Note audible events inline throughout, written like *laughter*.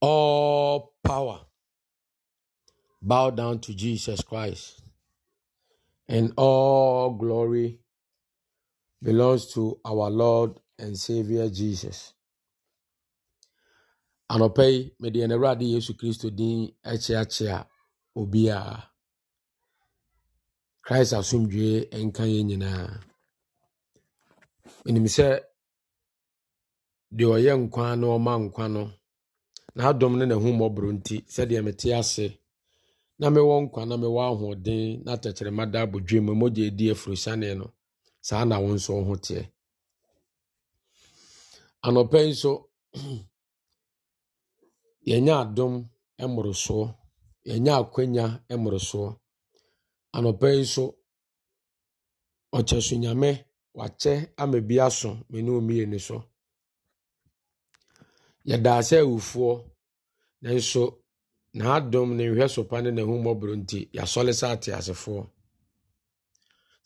all power bow down to Jesus Christ. And all glory belongs to our Lord and Savior Jesus. Anɔpa mede mede ɛnɛwurade Yesu Kristo din akyeakyea obiara. Christ asomdwee nka yɛn nyinaa. Menim sɛ deɛ ɔyɛ nkwa na ɔma nkwa no, na-adomu na na ne n'ahummɔborɔ nti sɛdeɛ mete ase na mewɔ nkwa na mewɔ ahoɔden na tɛkyerɛma da abɔdwe mu mogya edi afurosiane no saa na wo nso wo ho teɛ anɔpɛ yanya nso *clears throat* yɛnyɛ adom yanya yɛnyɛ akwanya mmorosoɔ anɔpɛ yi nso ɔkyɛ so nyame wakyɛ ama bi aso me ne omieni so yɛdaa sɛ awufoɔ nanso n'adom ne nhwɛ sopa ne n'ahummɔborɔ nti yɛasɔle sɛ ateasefoɔ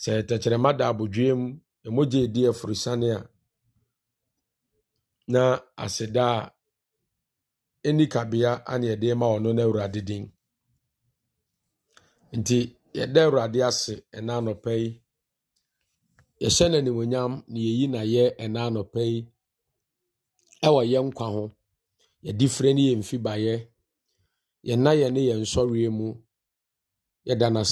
sɛ tɛkyerɛma da abodwee mu ɛmogye edi aforosiane a na aseda a ɛni kabea ane yɛde ma ɔno no awurade din nti yɛda awurade ase ɛna anɔpa yi yɛhyɛ no na yɛyi na yɛ ɛna anɔpa yi wɔ yɛn nkwa ho yɛdi frɛ ne yɛn yɛ yɛn na yɛn ne yɛn nsɔreɛ mu yɛda no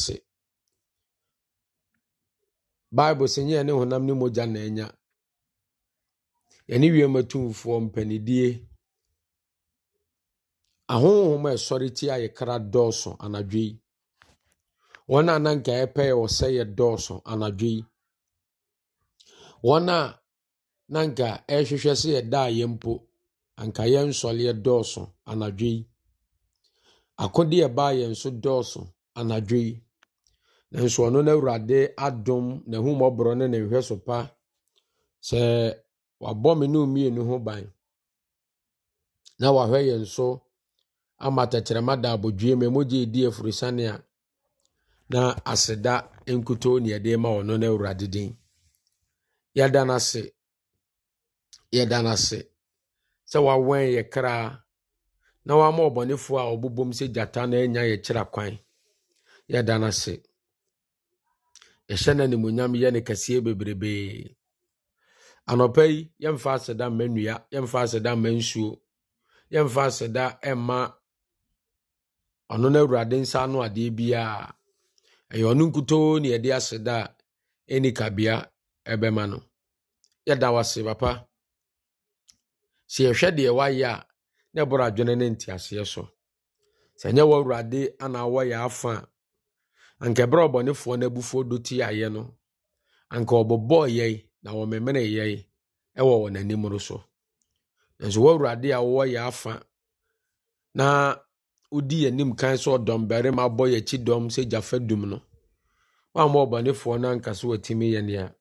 Baibu bible sɛ nyɛ ne honam ne mogya na anya yɛne wiem atumfoɔ mpanidie ahonhom a ɛsɔre tia yɛ kra dɔɔso anadwo yi wɔn a na nka yɛpɛ yɛ wɔ sɛ yɛ dɔɔso anadwo yi wɔn a na anka ɛrehwehwɛ sɛ yɛda a yɛ mpo anka yɛnsɔre dɔɔso anadwo yi akode ɛbaa yɛn nso dɔɔso anadwo yi nanso ɔno no awurade adom n'ahumɔborɔ ne ne hwɛ so pa sɛ wabɔ me ne mmienu ho ban na wahwɛ yɛn nso ama tɛtrɛma da abodwie emu mogye ɛdi afurisane a na aseda nkutoo ne yɛde ma ɔno no awurade din yɛda n'ase. yɛda no ase sɛ wawɛn yɛ kraa na wama ɔbɔnefoɔ a ɔbobom sɛ gyata na anya yɛkyerɛ kwan yɛda no ase yɛhyɛ no animonyam yɛ no kɛseɛ bebrebee anɔpa yi yɛmfa aseda mma nnua yɛmfa aseda mma nsuo yɛmfa aseda ɛma ɔno no awurade nsa ano adeɛ biara ɛyɛ ɔno nkutoo ne yɛde aseda a ɛni ɛbɛma no yɛda wase papa sɛ yɛhwɛ deɛ wayɛ a na ɛbɔrɔ adwene ne nteaseɛ so sɛ ɛnyɛ wɔ awurade anaa wɔyɛ afa a anka ɛberɛ ɔbɔnefoɔ no abufoɔ do ti ayɛ no anka ɔbɔbɔɔ yɛi na wɔmemene yɛi ɛwɔ wɔn anim no so nso wɔ awurade a wɔyɛ afa na wodi yɛnim kan sɛ ɔdɔm barima bɔ yɛkyi dɔm sɛ gyafa dum no wamma ɔbɔnefoɔ no anka so watumi yɛ nea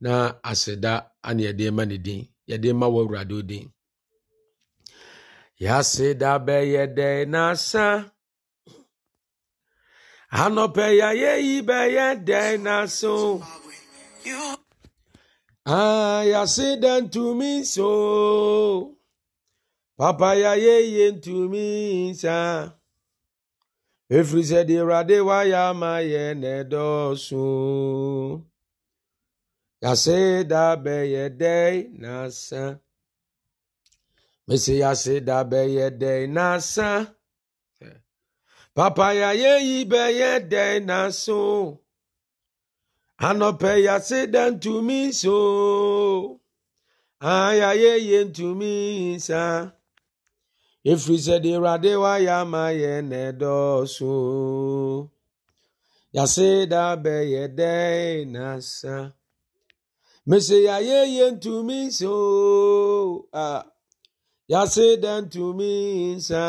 na aseda aneɛdeɛ ma ne din yɛde ma wɔ awurade odin yɛase da bɛyɛ dɛn n'asa anɔpɛ yɛayɛ yi bɛyɛ dɛn n'aso ah yɛase dɛ ntumi nso papa yɛayɛ yie ntumi nsa efiri sɛ deɛ ya ma ya na edosu Yase dabe yede nasa. Mesi yase de na nasa. Papa ya ye ibe yede naso. Anope yase dan to me so. Aya ah, ye yen to me sa. Efiri sɛ de awurade wa ya ama yɛ na ɛdɔɔso. Yase de na nasa. mese yɛayɛyɛ ntumi nsa o a yɛase dɛ ntumi nsa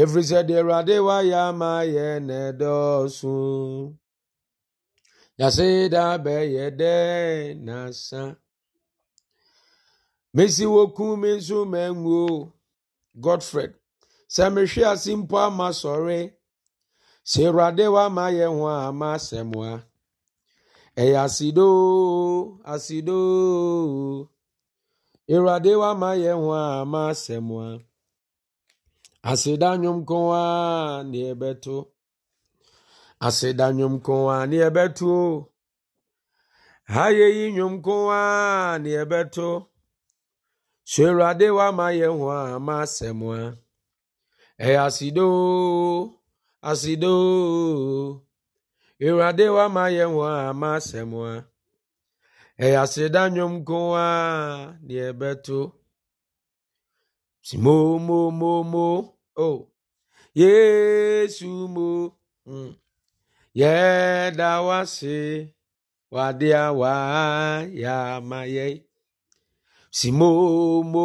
ɛfiri sɛ deɛ awurade wayɛ ama yɛ na ɛdɔɔso yɛase da bɛyɛ dɛ nasa mesi wɔku me nso manwuo godfred sɛ mehwe ase mpo ama sɔre sɛ awurade wama yɛ ho a ama asɛmoa èyà asidó ooo asidó ooo iradewa ma yehùnwa ma se mu a asidanu mkunwa ni ebe to o asidanu mkunwa ni ebe to o ha yaye yiyanwụ mkunwa ni ebe to o sịrị adewa ma yehùnwa ma se mu a èyà asidó ooo asido ooo ewurade wama yɛn wɔ ama asɛm a ɛyɛ aseda nnwom mo deɛ ɛbɛto o yesu mo hmm. yɛda wase wade a waayɛ ama mo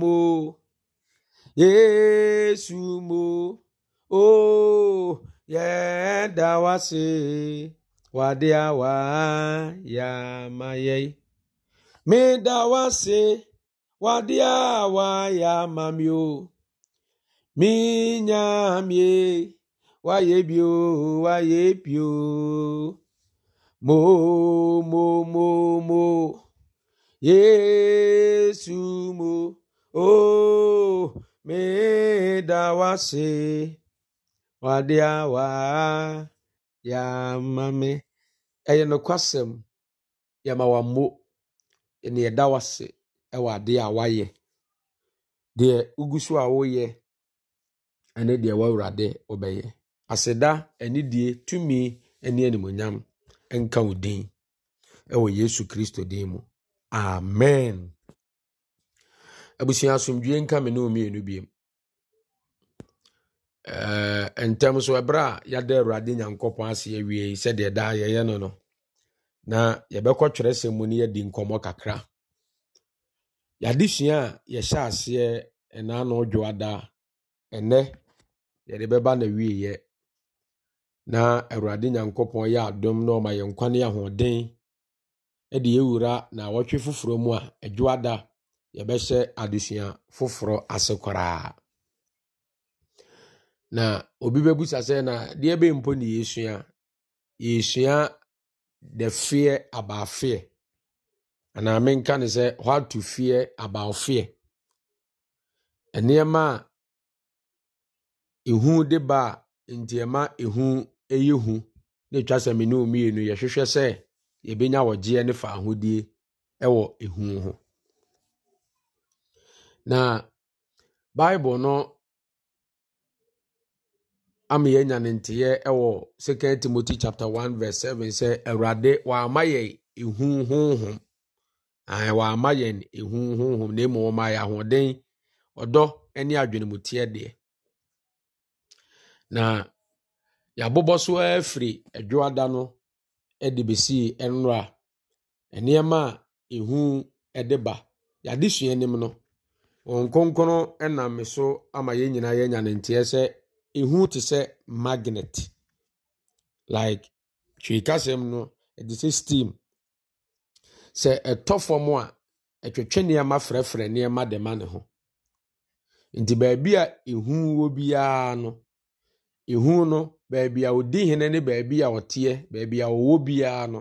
mo, yesu mo o. Oh yɛda wase wade awa yamayɛ meda wase wade awa yamami o minyamie wayɛ bio mo mo mo mo yesu mo o oh, meda wase. wadeɛ a waa yɛama me ɛyɛ nokwasɛm yɛma wammo ne yɛda wase ɛwɔ adeɛ a wayɛ deɛ wogu so a woyɛ ɛne deɛ wawurade wobɛyɛ aseda anidie tumi ne animonyam nka wo din ɛwɔ yesu kristo din mu amen abusua asomdwe nka me ne ɔmienu biemu Eh, ntɛm so ɛberɛ a yɛada awurade nyankopɔn ase awie yi sɛdeɛ daa yɛyɛ no no na yɛbɛkɔ twerɛsɛm mu no yɛdi nkɔmmɔ kakra yɛadesua a yɛhyɛ aseɛ ɛnaa na ɔdwoada ɛnɛ yɛde bɛba na wieyɛ na awurade nyankopɔn yɛ adom na ɔma yɛn kwane ahoɔden ɛde yɛwura na wɔtwe foforɔ mu a ɛdwoada yɛbɛhyɛ adesua foforɔ ase koraa na obi bɛbusa sɛ na deɛ bɛ mpo na yɛsua yɛsua dɛfeɛ fear about fear anaa menka ne sɛ how to fear nneɛma a ehu de ba a nteɛma ehu yɛ hu na etwa sɛ mene mmienu yɛhwehwɛ sɛ yɛbɛnya wɔgyeɛ ne fa ahodie wɔ ehu ho na bible no ama yɛn nya ne nteɛ wɔ second timothy chapter one verse seven sɛ awurade wama yɛn ehu honhom ahe wama yɛn ehu honhom na emu wɔn ayɛ ahoɔden ɔdɔ ne adwenemuteɛ deɛ na yɛabobɔ so afiri adwoada no de besii nwura nneɛma a ehu de ba yɛade sua anim no wɔn kronkron nam so ama yɛn nyinaa yɛn nya ne nteɛ sɛ ehu te sɛ magnet like twekasɛm no ɛde sɛ steam sɛ ɛtɔ fam a ɛtwetwe nneɛma frɛfrɛ nneɛma de ma ne ho nti baabi a ehu wɔ biara no ehu no baabi a odi hene ne baabi a ɔteɛ baabi a ɔwɔ biara no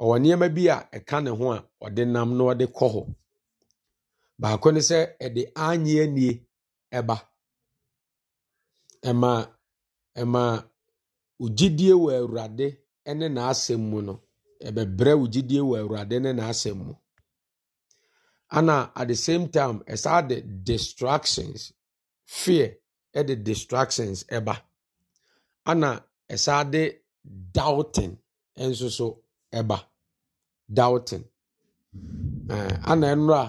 ɔwɔ nneɛma bi a ɛka ne ho a ɔde nam na ɔde kɔ hɔ baako ne sɛ ɛde anye nie ɛba. ɛma ɛma wo gyidie wɔ awurade ne n'asɛm mu no ɛbɛbrɛ wo gyidie wɔ awurade ne n'asɛm mu ana at the same time ɛsaa de distractions fear ɛde distractions ɛba na ɛsaa de doubting nso so ɛba doubting uh, ana ɛnora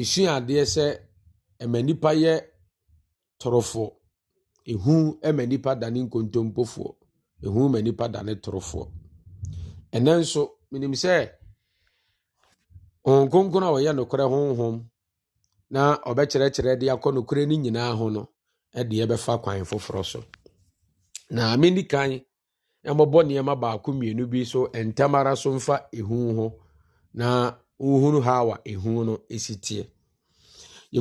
esua adeɛ sɛ ɛma nipa yɛ torofoɔ. ehu ma nnipa dane nkontompofoɔ ehu ma nnipa dane torofoɔ ɛnɛ nso menim sɛ honhom kronkron a ɔyɛ nokorɛ honhom na ɔbɛkyerɛkyerɛ de akɔ nokorɛ no nyinaa ho no ɛde ɛbɛfa kwan foforɔ so na mendi kan ɛmmɔbɔ nneɛma baako mmienu bi so ntam ara so mfa ehu ho na wohunu ha wa ehu no ɛsi teɛ yɛ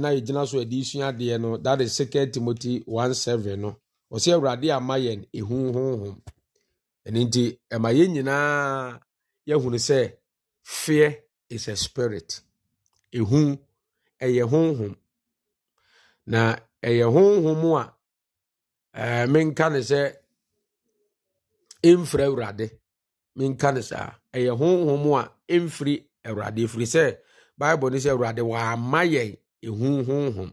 na yɛgyina so yɛde sua adeɛ no that is second timothy 17 no ɔsɛ awurade ama yɛn ehu honhom ɛno nti ɛma yɛn nyinaa yɛhunu sɛ fear is a spirit ehu ɛyɛ honhom na ɛyɛ honhom a ɛɛ menka ne sɛ mfiri awurade menka ne saa ɛyɛ honhom a mfiri awurade firi sɛ bible no sɛ wa ama yɛn ɛhu honhom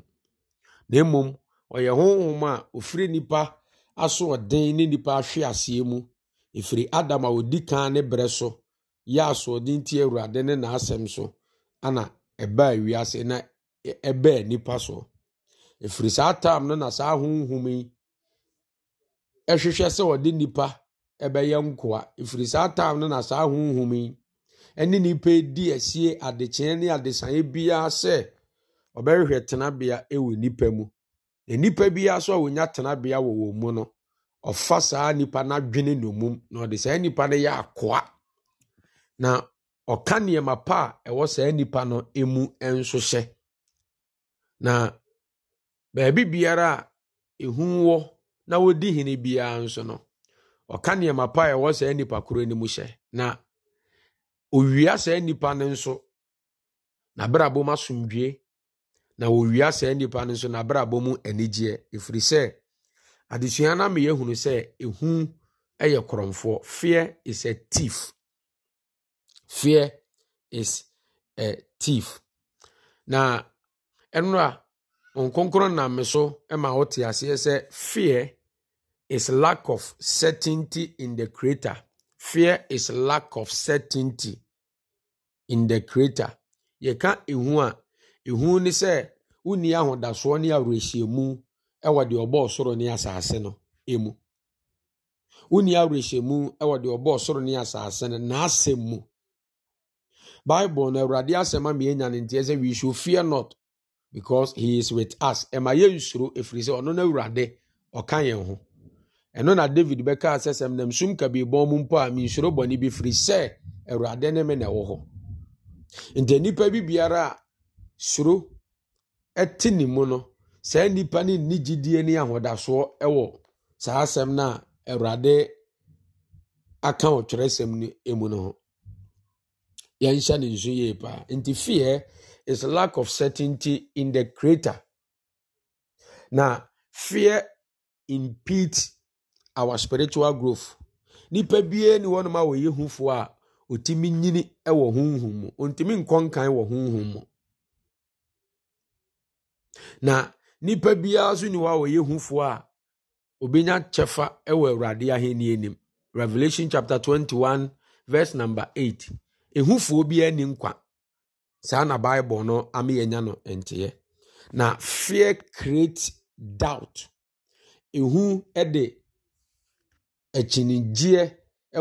na mmom ɔyɛ honhom a ɔfiri nnipa asoɔden ne nnipa ahwe aseɛ mu ɛfiri adam a odi kan ne berɛ so yɛ asoɔden ti awurade ne n'asɛm so ana ɛbaa wiase na ɛbɛɛ nipa so ɛfiri saa tam no na saa honhom yi ɛhwehwɛ sɛ ɔde nipa ɛbɛyɛ nkoa ɛfiri saa tam no na saa honhom yi ne nnipa di asie adekyee ne adesanye biara sɛ ɔbɛhwehwɛ tenabea wɔ nnipa mu na nnipa biara so a wɔnya tenabea wɔ wɔn mu no ɔfa saa nnipa n'adwene nomum na ɔde saa nnipa no yɛ akoa na ɔka nneɛma pa a ɛwɔ saa nnipa no mu nso hyɛ na baabi biara a ehu wɔ na wodi hene biara nso no ɔka nneɛma pa a ɛwɔ saa nnipa koro no mu hyɛ na owia saa nipa no nso n'abrabɔ abom asomdwie na owia saa nipa no nso n'abrabɔ abom anigyeɛ efiri sɛ adesua no ameyɛ hunu sɛ ehu yɛ korɔmfoɔ fear is a thief fear is a thief na ɛno nkonkoro nkonkron nam me so ma wote aseɛ sɛ fear is lack of certainty in the creator Fear is lack of certainty in the creator. Yɛka ihu a, ihu ne sɛ wonni ahodasoɔ ne awerɛhyɛmu wɔ deɛ ɔbɔɔ soro ne asase no mu. Wonni awerɛhyɛmu wɔ deɛ ɔbɔɔ soro ne asase no n'asɛm mu. Bible na Awurade asɛm a mmiɛnya ne nteɛ sɛ we should fear not because he is with us. Ɛma nsoro ɛfiri sɛ ɔno no Awurade ɔka yɛn ho. ɛno na david bɛkaa sɛ sɛm nam sum kabiribɔn mu mpo a mensuro bɔne bi firi sɛ awurade ne me na ɛwɔ hɔ nti nnipa bi biara a suro te ne mu no saa nnipa no nni gyidie ne ahodasoɔ wɔ saa asɛm no a awurade aka ɔtwerɛsɛm no mu no ho yɛnhyɛ ne nso yie paa nti fear is lack of certainty in the creator na fear impedes our spiritual growth nipa bie ne wɔnom a wɔyɛ hufoɔ a otimi nyini wɔ huhu mu ɔntumi nkɔ wɔ huhu mu na nipa biara nso ni a wɔyɛ a a obenya kyɛfa wɔ awurade ahenni anim revelation chapter 21 verse number 8 ehufoɔ biara ni nkwa saa na bible no ameyɛnya no nteɛ na fear create doubt Akyinnyegyeɛ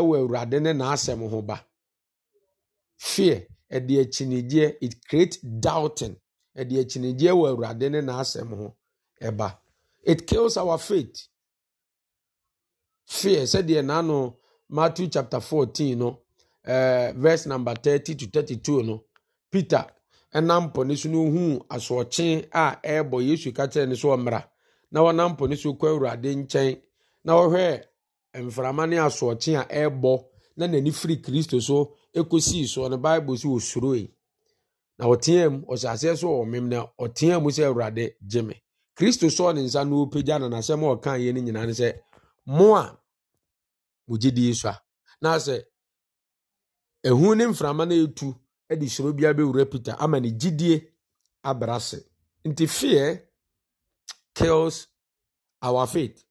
wɔ Awurade ne n'asɛm ho ba. Fear, ɛde akyinnyegyeɛ it create doubting. Ɛde akyinnyegyeɛ wɔ Awurade ne n'asɛm ho ba. It kills our faith. Fear, sɛdeɛ n'ano Matthew chapter 14 no ɛɛ eh, verse number 30 to 32 no, Peter nam pɔ no so no a ɛrebɔ Yesu ka kyerɛɛ no sɛ Na wɔnam po no so kɔ Awurade nkyɛn na wɔhwɛɛ mframa ne asoɔkye a ɛrebɔ na n'ani firi kristo so kɔsii soɔ no bible sɛ ɔsuroe na ɔteɛ mu ɔhyɛ aseɛ so wɔ mem na ɔteɛ mu sɛ awurade gye me kristo sɔɔ ne nsa na ɔpagya na n'asɛm a ɔka yɛ no nyinaa ne sɛ mo a mo gyedie so a na sɛ ehu ne mframa no ɛtu de suro bia bɛwura peter ama ne gyidie abra ase nti fear kills our faith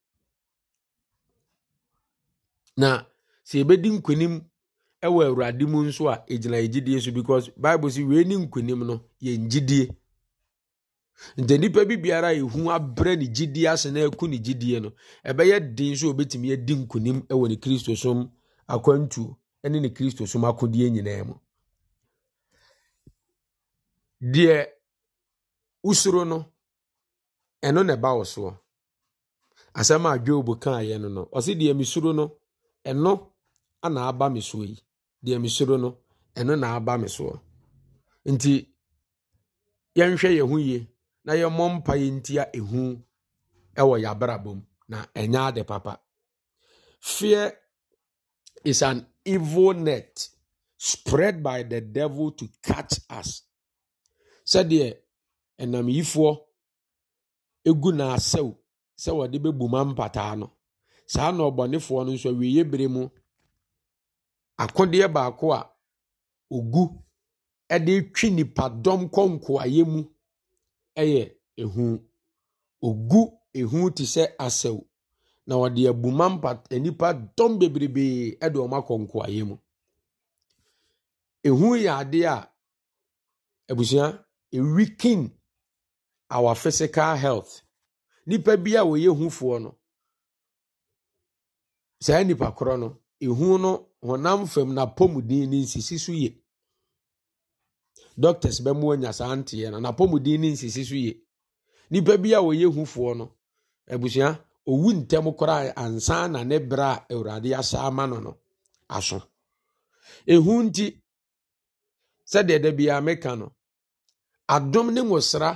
na sɛ yɛbɛdi nkonim wɔ awurade mu nso a ɛgyina yɛgyidie so because bible si wee ne nkonim no yɛ gyidie nti nipa bi biara a ɛhu abrɛ ne gyidie ase na ɛku ne gyidie no ɛbɛyɛ den so obɛtumi adi nkonim ɛwɔ ne kristosom akwantuo ne ne kristosom akodeɛ nyinaa mu deɛ usoro no ɛno na ɛba wo soɔ asɛm a dwob kaeɛ no no ɔsi deɛ mesuro no ɛno ana aba me soɔ yi deɛ soro no ɛno na aba me soɔ nti yɛnhwɛ yɛn ho yie na yɛmmɔ mpa yɛ ntia ehu ɛwɔ yɛabrabɔ mu na ɛnya ade papa fear is an evil net spread by the devil to catch us sɛdeɛ ɛnam yifoɔ egu n'asɛw sɛ wɔde bu ma mpataa no saa na ɔbɔnefoɔ no nso awieɛ bere mu akodeɛ baako a ogu de twi nipadɔm kɔ nkoayɛ mu ɛyɛ ehu ogu ehu te sɛ asaw na ɔde abuma mpa nnipa dɔm bebrebee ɛde wɔn akɔ nkoayɛ mu ehu yɛ adeɛ a abusua ewikin our physical health nipa bi a wɔyɛ hufoɔ no saa nnipa korɔ no ehu no honam fam n'apɔmuden ne nsisi so yie doctors bɛ mu anya saa nteɛ no n'apɔmuden ne nsisi so yie nipa bi a wɔyɛ hufoɔ no abusua owu ntɛm koraa ansa na ne bere a awurade asa ama no no aso ehu nti sɛdeɛ da biara meka no adom ne nwosra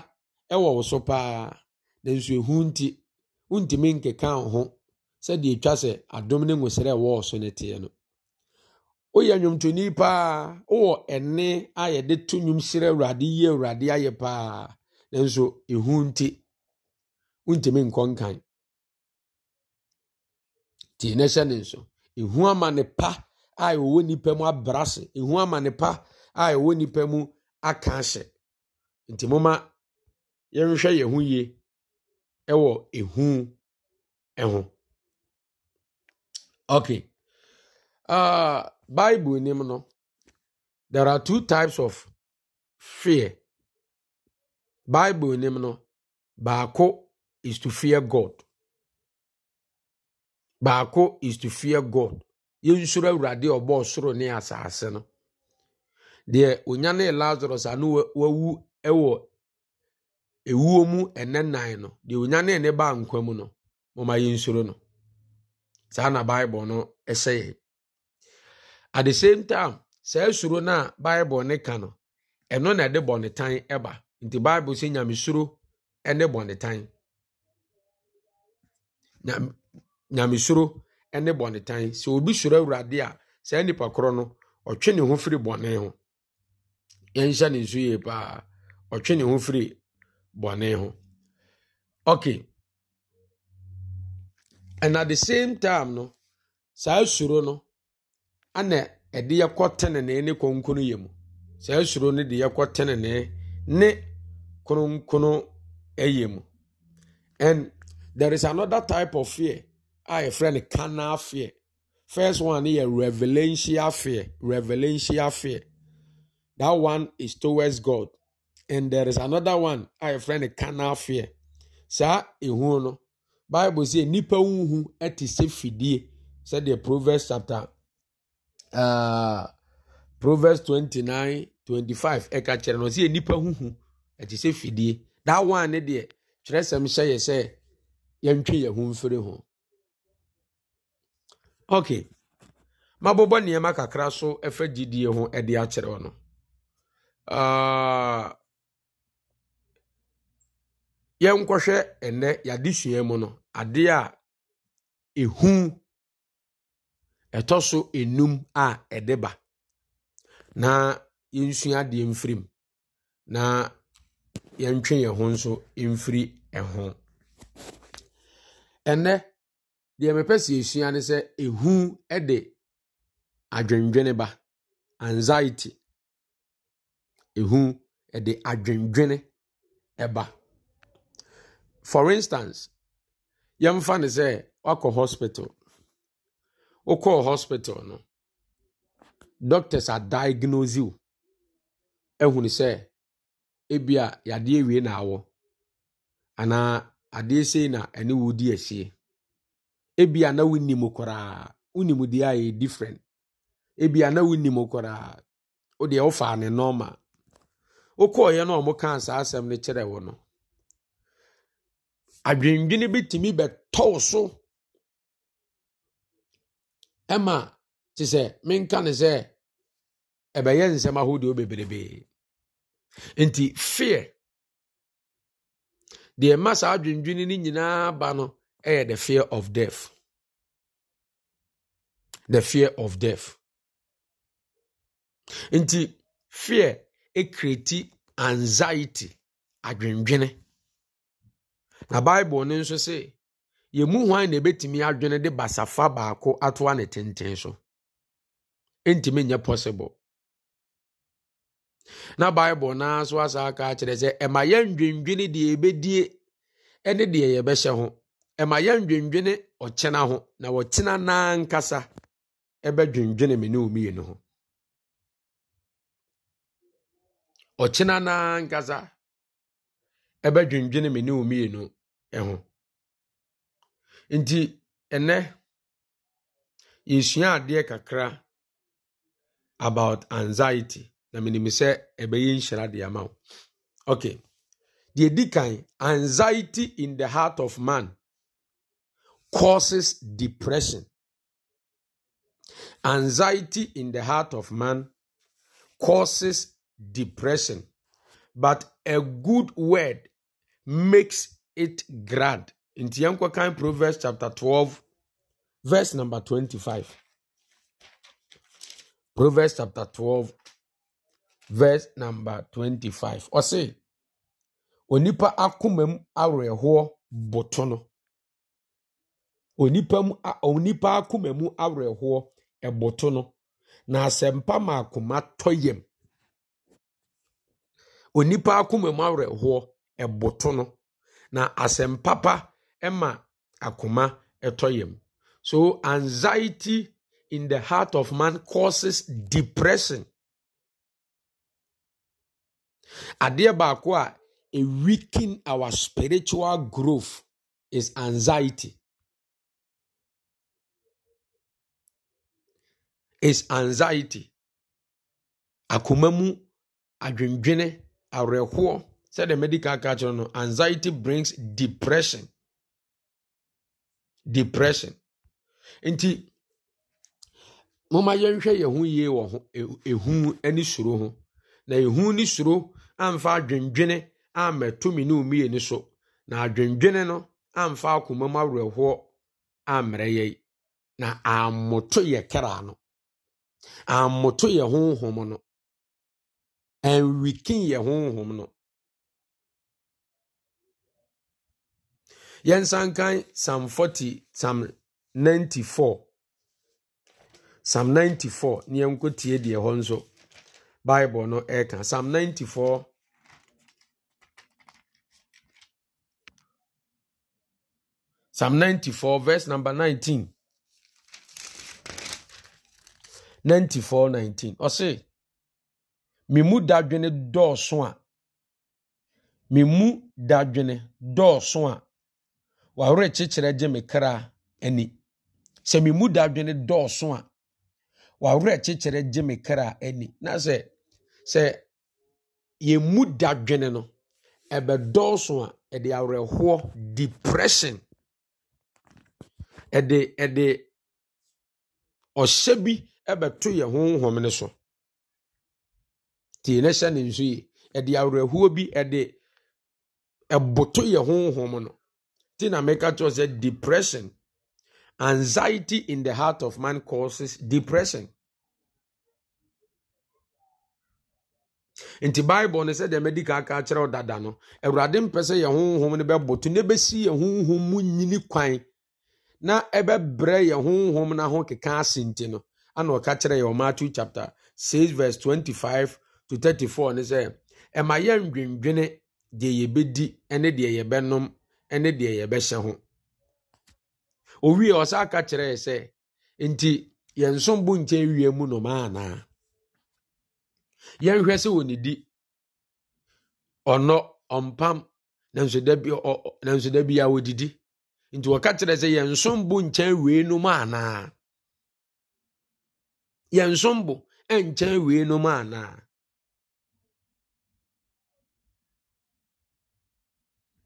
ɛwɔ wo so paa nanso ehu nti ntumi nkeka ho sɛdeɛ twa sɛ adom ne nwosrɛ a wɔwɔ so no teɛ no woyɛ nnwomtoni paa wowɔ ɛne a yɛde to nnwom hyerɛ awurade yie awurade ayɛ paa nanso ɛhu nti wontumi nkɔ nkan nti na hyɛ ne nso ɛhu amane pa a ɛwɔ nnipa mu abra se ɛhu amane pa a ɛwɔ nnipa mu aka ahyɛ nti moma yɛnhwɛ yɛn ho yie ɛwɔ ɛhu ɛho ok Uh, Bible name no. There are two types of fear. Bible name no. Baako is to fear God. Baako is to fear God. Yɛnsuro Awurade ɔbɔ ɔsoro ne asase no. Deɛ onya ne Lazarus ano wawu wɔ ewuo mu ɛnɛ nan no. Deɛ onyane ne ne ba nkwa mu no. Mɔma yɛnsuro no. saa na bible no ɛsɛ yɛ at the same time saa suro no a bible ne ka no ɛno na ɛde bɔnetan ɛba nti bible sɛ nyamesuro ɛne bɔnetan nyamesuro ɛne bɔnetan sɛ obi suro awurade a saa nipa korɔ no ɔtwe ne ho firi bɔne ho yɛnhyɛ ne nso yie paa ɔtwe ne ho firi bɔne ho okay and at the same time no saa suro no ana ɛde yɛkɔ tenenee ne konkono yɛ mu saa suro no de yɛkɔ tenenee ne kononkono ɛyɛ mu and there is another type of fear a yɛfrɛ no carnal fear first one yɛ revelation fear revelational fear that one is towards god and there is another one a yɛfrɛ no carnal fear saa ehun no. bible sɛ nnipa wohu te sɛ fidie sɛdeɛ proverbs chapter uh, proverbs 29 25 ɛka kyerɛ no sɛ nnipa huhu ɛte sɛ fidie da one ne deɛ sɛm hyɛ yɛ sɛ yɛntwe yɛn ho mfiri ho ok mabobɔ nneɛma kakra so ɛfa gyidie ho ɛde akyerɛ no ah, yɛnkɔhwɛ ɛnnɛ yɛadesua mu no adeɛ a ehu ɛtɔ so enum a ɛde ba na yɛnsua adeɛ mfiri mu na yɛntwe yɛn ho nso mfiri ɛho ɛnɛ deɛ mepɛ si esua ne sɛ ehu ɛde adwendwene ba anxiety ehu ɛde adwendwene ɛba for instance. yɛmfa ne sɛ wakɔ hospital wokɔɔ hospital no doctors adiagnose wo ahunu sɛ ebia yadeɛ wie na awɔ anaa adeɛ sei na ɛne wo di ahyie ebia na wonim koraa wonim deɛ a yɛ different ebia na wonim koraa wodeɛ wofaa ne nɔɔma wokɔɔyɛ no a ɔmo kaa saa asɛm no kyerɛ wo no adwendwene bi tumi bɛtɔw so ɛma te sɛ menka ne sɛ ɛbɛyɛ nsɛm ahodoɔ bebrebee nti fear deɛ ɛma saa adwendwene no nyinaa ba no ɛyɛ the fear of death the fear of death nti fear ekreti anxiety adwendwene. na bible no nso se yɛmu hwan na ebetumi adwene de basafa baako atoa ne tenten so ɛntumi nyɛ possible na bible naa so asa aka akyerɛ sɛ ɛma yɛndwendwene deɛ yɛbɛdie ɛne deɛ yɛbɛhyɛ ho ɛma yɛndwendwene ɔkyena ho na ɔkyena naa nkasa ɛbɛdwendwene me ne omienu ho ɔkyena naa nkasa ɛbɛdwendwene me ne nti ɛnɛ yɛsua adeɛ kakra about anxiety na menim sɛ ɛbɛyɛ nhyira de ama wo okay deɛ di kan anxiety in the heart of man causes depression anxiety in the heart of man causes depression but a good word makes it grand nti yɛn kɔkan proverbs chapter twelve verse number twenty-five proverbs chapter twelve verse number twenty-five ɔse onipa akoma mu awerɛhoɔ boto no onipa mu onipa akoma mu awerɛhoɔ ɛboto no na asɛmpa ma akoma tɔ yam onipa akoma mu awerɛhoɔ. ɛboto no na asɛmpapa papa, akoma ɛtɔ yam so anxiety in the heart of man causes depression adeɛ baako a a weaken our spiritual growth is anxiety is anxiety akoma mu adwendwene awerɛhoɔ sɛdeɛ medical culture no anxiety brings depression depression nti moma yɛnhwɛ yɛn ho yie wɔ ho e, ehu ne suro ho na ehu ne suro amfa adwendwene ammɛtumi ne omiye ne so na adwendwene no amfa akoma mu awerɛhoɔ na ammoto yɛ kra no ammoto yɛ honhom no ɛnwikin yɛ yɛnsankan psalm forty, psalm ninety-four, psalm 94 ne yɛnkɔtie deɛ hɔ nso bible no ɛka psalm ninety-four, psalm ninety-four verse number nineteen, 94 19 ɔse me mu dadwene dɔɔso a me mu dadwene dɔɔso a wɔawerɛ kyekyerɛ gye me kra ani sɛ me mu dadwene dɔɔso a wɔawerɛ kyekyerɛ gye me kra ani na sɛ sɛ yɛmu dadwene no ɛbɛdɔɔso a ɛde awerɛhoɔ depression ɛde ɛde ɔhyɛ bi ɛbɛto yɛ honhom ne so tie ne hyɛ ne nso yi ɛde awerɛhoɔ bi ɛde ɛboto yɛ honhom no America, Maker Church said depression, anxiety in the heart of man causes depression. In the bible no sɛ deɛ madi kaka kyerɛw dada no awurade mpɛ sɛ yɛn honhom no bɛboto na ɛbɛsi yɛn honhom mu nyini kwan na ɛbɛbrɛ yɛn honhom no ho keka ase nti no ana ɔka kyerɛ yɛn matthew chapter 6 verse 25 to 34 ne sɛ ɛma yɛn dwendwene deɛ yɛbɛdi ne deɛ yɛbɛnom ne deɛ yɛbɛhyɛ ho owie ɔsa ka kyerɛɛ sɛ nti yɛnsom bo nkyɛn wie mu noma anaa yɛnhwɛ sɛ n'idi ɔnɔ ɔmpam na nso da bi bi na nso da a wɔdidi nti wɔka kyerɛ sɛ yɛnsom bo nkyɛn wie nom anaa yɛnsom bo nkyɛn wie nom anaa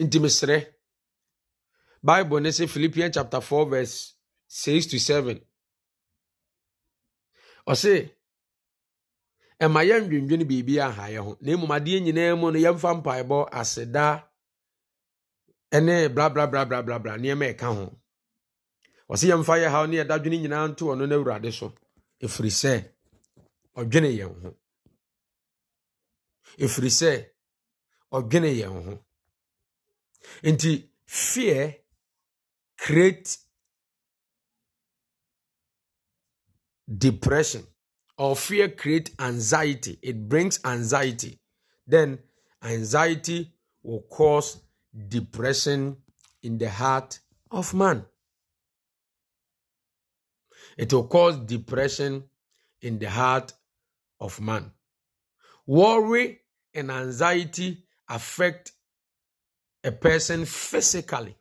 nti mesrɛ bible ne sɛ philippians chapter 4 verse 6 to 7 ɔse ɛma yɛndwendwene biribi aha yɛ ho na mmom adeɛ nyinaa mu no yɛmfa mpaebɔ aseda ne blablablablabla nneɛma ɛka ho Ọ yɛmfa yɛ haw ne yɛdadwene nyinaa nto ɔno no awurade so Efiri ɛfiri sɛ ɔdwene yɛn ho ɛfiri sɛ ɔdwene ya hụ. nti fear create depression or fear create anxiety it brings anxiety then anxiety will cause depression in the heart of man it will cause depression in the heart of man worry and anxiety affect a person physically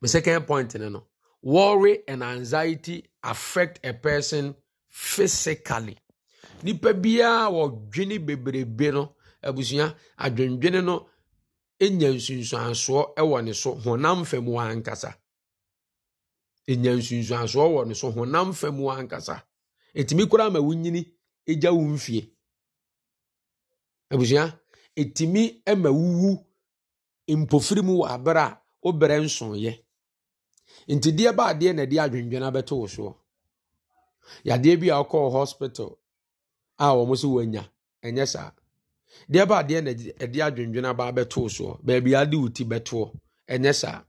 My second point, you know, worry and anxiety affect a person physically. nipa biara wɔdwene bebrebe no abusua adwendwene no nya nsunsuansoɔ wɔ ne so honam fam wɔ ankasa enya nsunsuansoɔ wɔ ne so honam fam wɔ ankasa etumi koraa ma wunyini egya wo mfie abusua etimi ma wuwu mpofiri mu wɔ abere a Obere berɛ nsoeɛ nti deɛ ba adeɛ na ɛde adwendwene abɛto wo soɔ yadeɛ bi a wokɔɔ hospital a wɔn nso wɔanya ɛnyɛ saa deɛ ba adeɛ na ɛde adwendwene aba abɛto wo soɔ baabi ade wo ti bɛtoɔ ɛnyɛ saa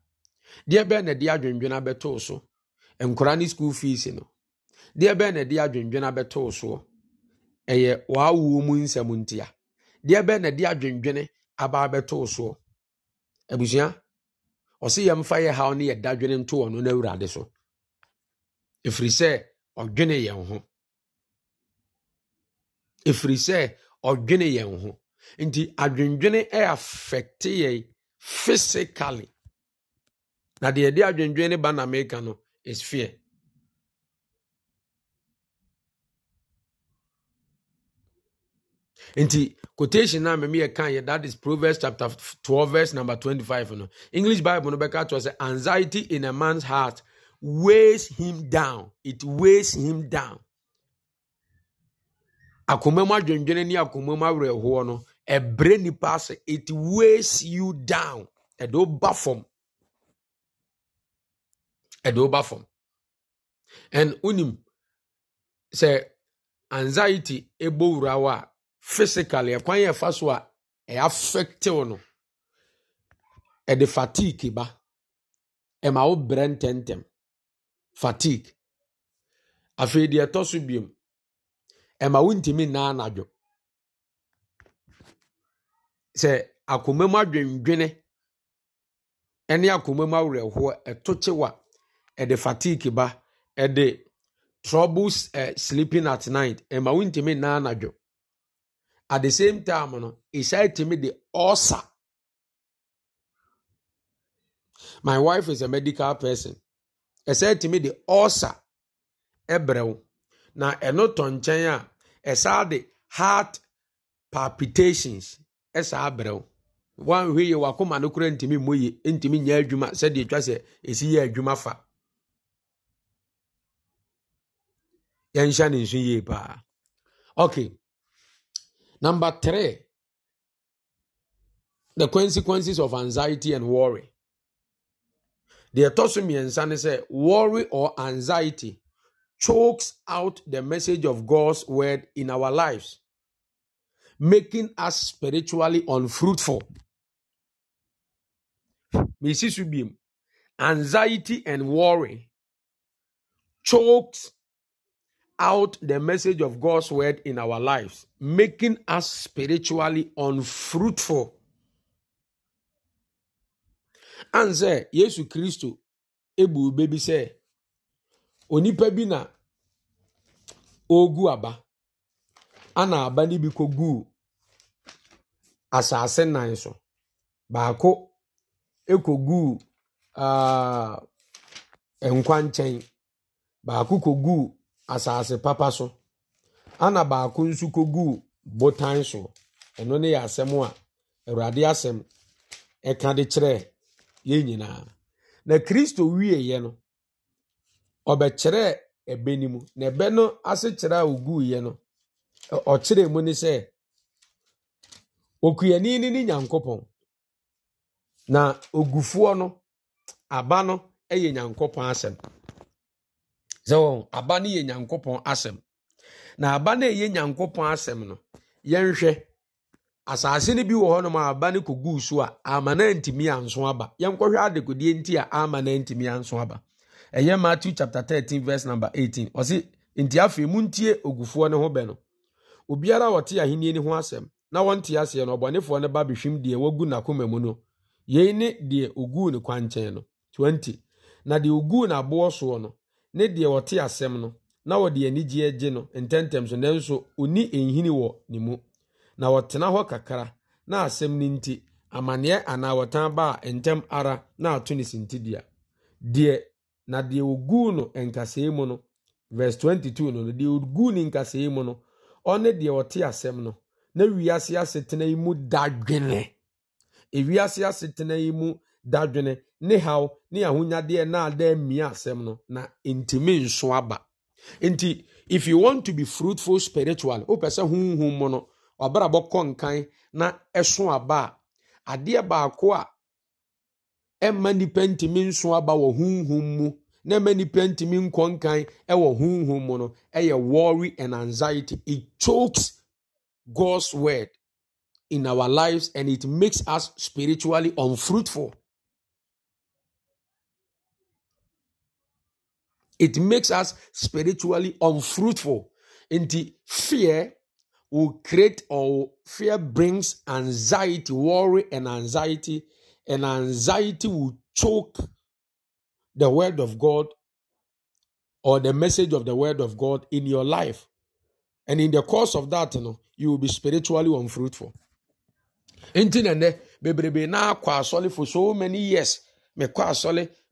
deɛ bɛɛ na ɛde adwendwene abɛto wo so nkora ne school fees no deɛ bɛɛ na ɛde adwendwene abɛto wo soɔ ɛyɛ wɔawuo mu nsɛm ntia deɛ bɛɛ na ɛde adwendwene aba abɛto wo soɔ abusua ɔsɛ yɛmfa yɛ haw ne yɛda dwene nto ɔno no awurade so ɛfiri sɛ ɔdwene yɛn ho ɛfiri sɛ ɔdwene yɛn ho nti adwendwene affecte yɛn physically na deɛ ɛde adwendwene ne ba na meka no is fear nti quotation na me yɛ kan that is proverbs chapter twelve verse number twenty-five no english bible no bɛka to anxiety in a man's heart weighs him down it weighs him down akoma mu ni ne akoma mu awerɛhoɔ no ɛbrɛ it weighs you down a do ba a do o and unim say anxiety ebo urawa. physically ɛkwan yɛ ɛfa so a ɛyɛ no ɛde fatigue ba ɛma wo brɛ ntɛntɛm fatigue afei deɛ ɛtɔ so biom ɛma wontumi nnaa anadwo sɛ akoma mu adwendwene ne akoma mu awerɛhoɔ ɛto kyewa ɛde fatigue ba ɛde troubles uh, sleeping at night ɛma wontumi nnaa anadwo at the same time no ɛhyɛ tumi de ɔsa my wife is a medical person ɛsɛ tumi de ɔsa ɛbrɛ wo na eno tɔ nkyɛn a ɛsaa de heart palpitations ɛsaa brɛ wo wanhwɛ yi wakoma no kora ntumi mmɔ yie ntumi nyɛ adwuma sɛdeɛ twa sɛ esi yɛ adwuma fa yɛnhyɛ ne nso yie paa okay Number three, the consequences of anxiety and worry. Deɛ ɛtɔ so mmiɛnsa ne sɛ worry or anxiety chokes out the message of God's word in our lives, making us spiritually unfruitful. Mrs. Subim, anxiety and worry chokes out the message of God's word in our lives, making us spiritually unfruitful. And Yesu Kristo ebu baby say, onipa bi na ogu aba ana na-aba n'ibi kogu asase nnan so baako ekogu ah, nkwa nkyɛn baako asase papa so ana baako nso kɔguu botan soɔ ɛno ne yɛ asɛm a awurade asɛm ɛka de kyerɛ yɛn nyinaa na kristo wieeɛ no ɔbɛkyerɛɛ ɛbɛ no mu na ɛbɛ no ase kyerɛ a ɔguiɛ no ɔkyerɛɛ mu ne sɛ okuani no ne nyankopɔn na ogufoɔ no aba no yɛ nyankopɔn asɛm sɛ aba no yɛ nyankopɔn asɛm na aba no ɛyɛ nyankopɔn asɛm no yɛnhwɛ asase no bi wɔ hɔnom a aba no kɔguu so a ama no antumi anso aba yɛnkɔhwɛ adekodeɛ nti a ama no antumi anso aba ɛyɛ matthew chapter 13 verse number 18 ɔse nti afei muntie ogufoɔ ne ho bɛ no obiara a ɔte ahenni no ho asɛm na wɔnte aseɛ no ɔbɔnefoɔ no ba bɛhwim deɛ wagu n'akoma mu no yei ne deɛ oguu ne kwankyɛn no 20 na deɛ oguu n'aboɔ soɔ no ne deɛ ɔte asɛm no na ɔde anigyeɛ gye no ntɛmtɛm so nanso ɔni nhini wɔ ne mu na ɔtena hɔ kakra na asɛm no nti amanneɛ anaa wɔtan ba a ntɛm ara na ato ne sintidua deɛ na deɛ ɔguu no nkasɛe mu no verse 22 no deɛ ɔguu ne nkasɛe mu no ɔne deɛ ɔte asɛm no na wiase asetena yi mu dadwene ewiase asetena yi mu dadwene ne haw ne ahonyadeɛ na adan mmea asɛm no na ntumi nso aba nti if you want to be fruitful spiritually wopɛ sɛ honhum mu no ɔbrabɔ kɔ nkan na ɛso aba a adeɛ baako a ɛmma nnipa ntumi nso aba wɔ honhum mu na ɛmma nipa ntumi nkɔ nkan ɛwɔ honhum mu no ɛyɛ worry and anxiety it chokes God's word in our lives and it makes us spiritually unfruitful. It makes us spiritually unfruitful. the fear will create or fear brings anxiety, worry, and anxiety, and anxiety will choke the word of God or the message of the word of God in your life. And in the course of that, you know, you will be spiritually unfruitful. Nti nene bebrebe na for so many years me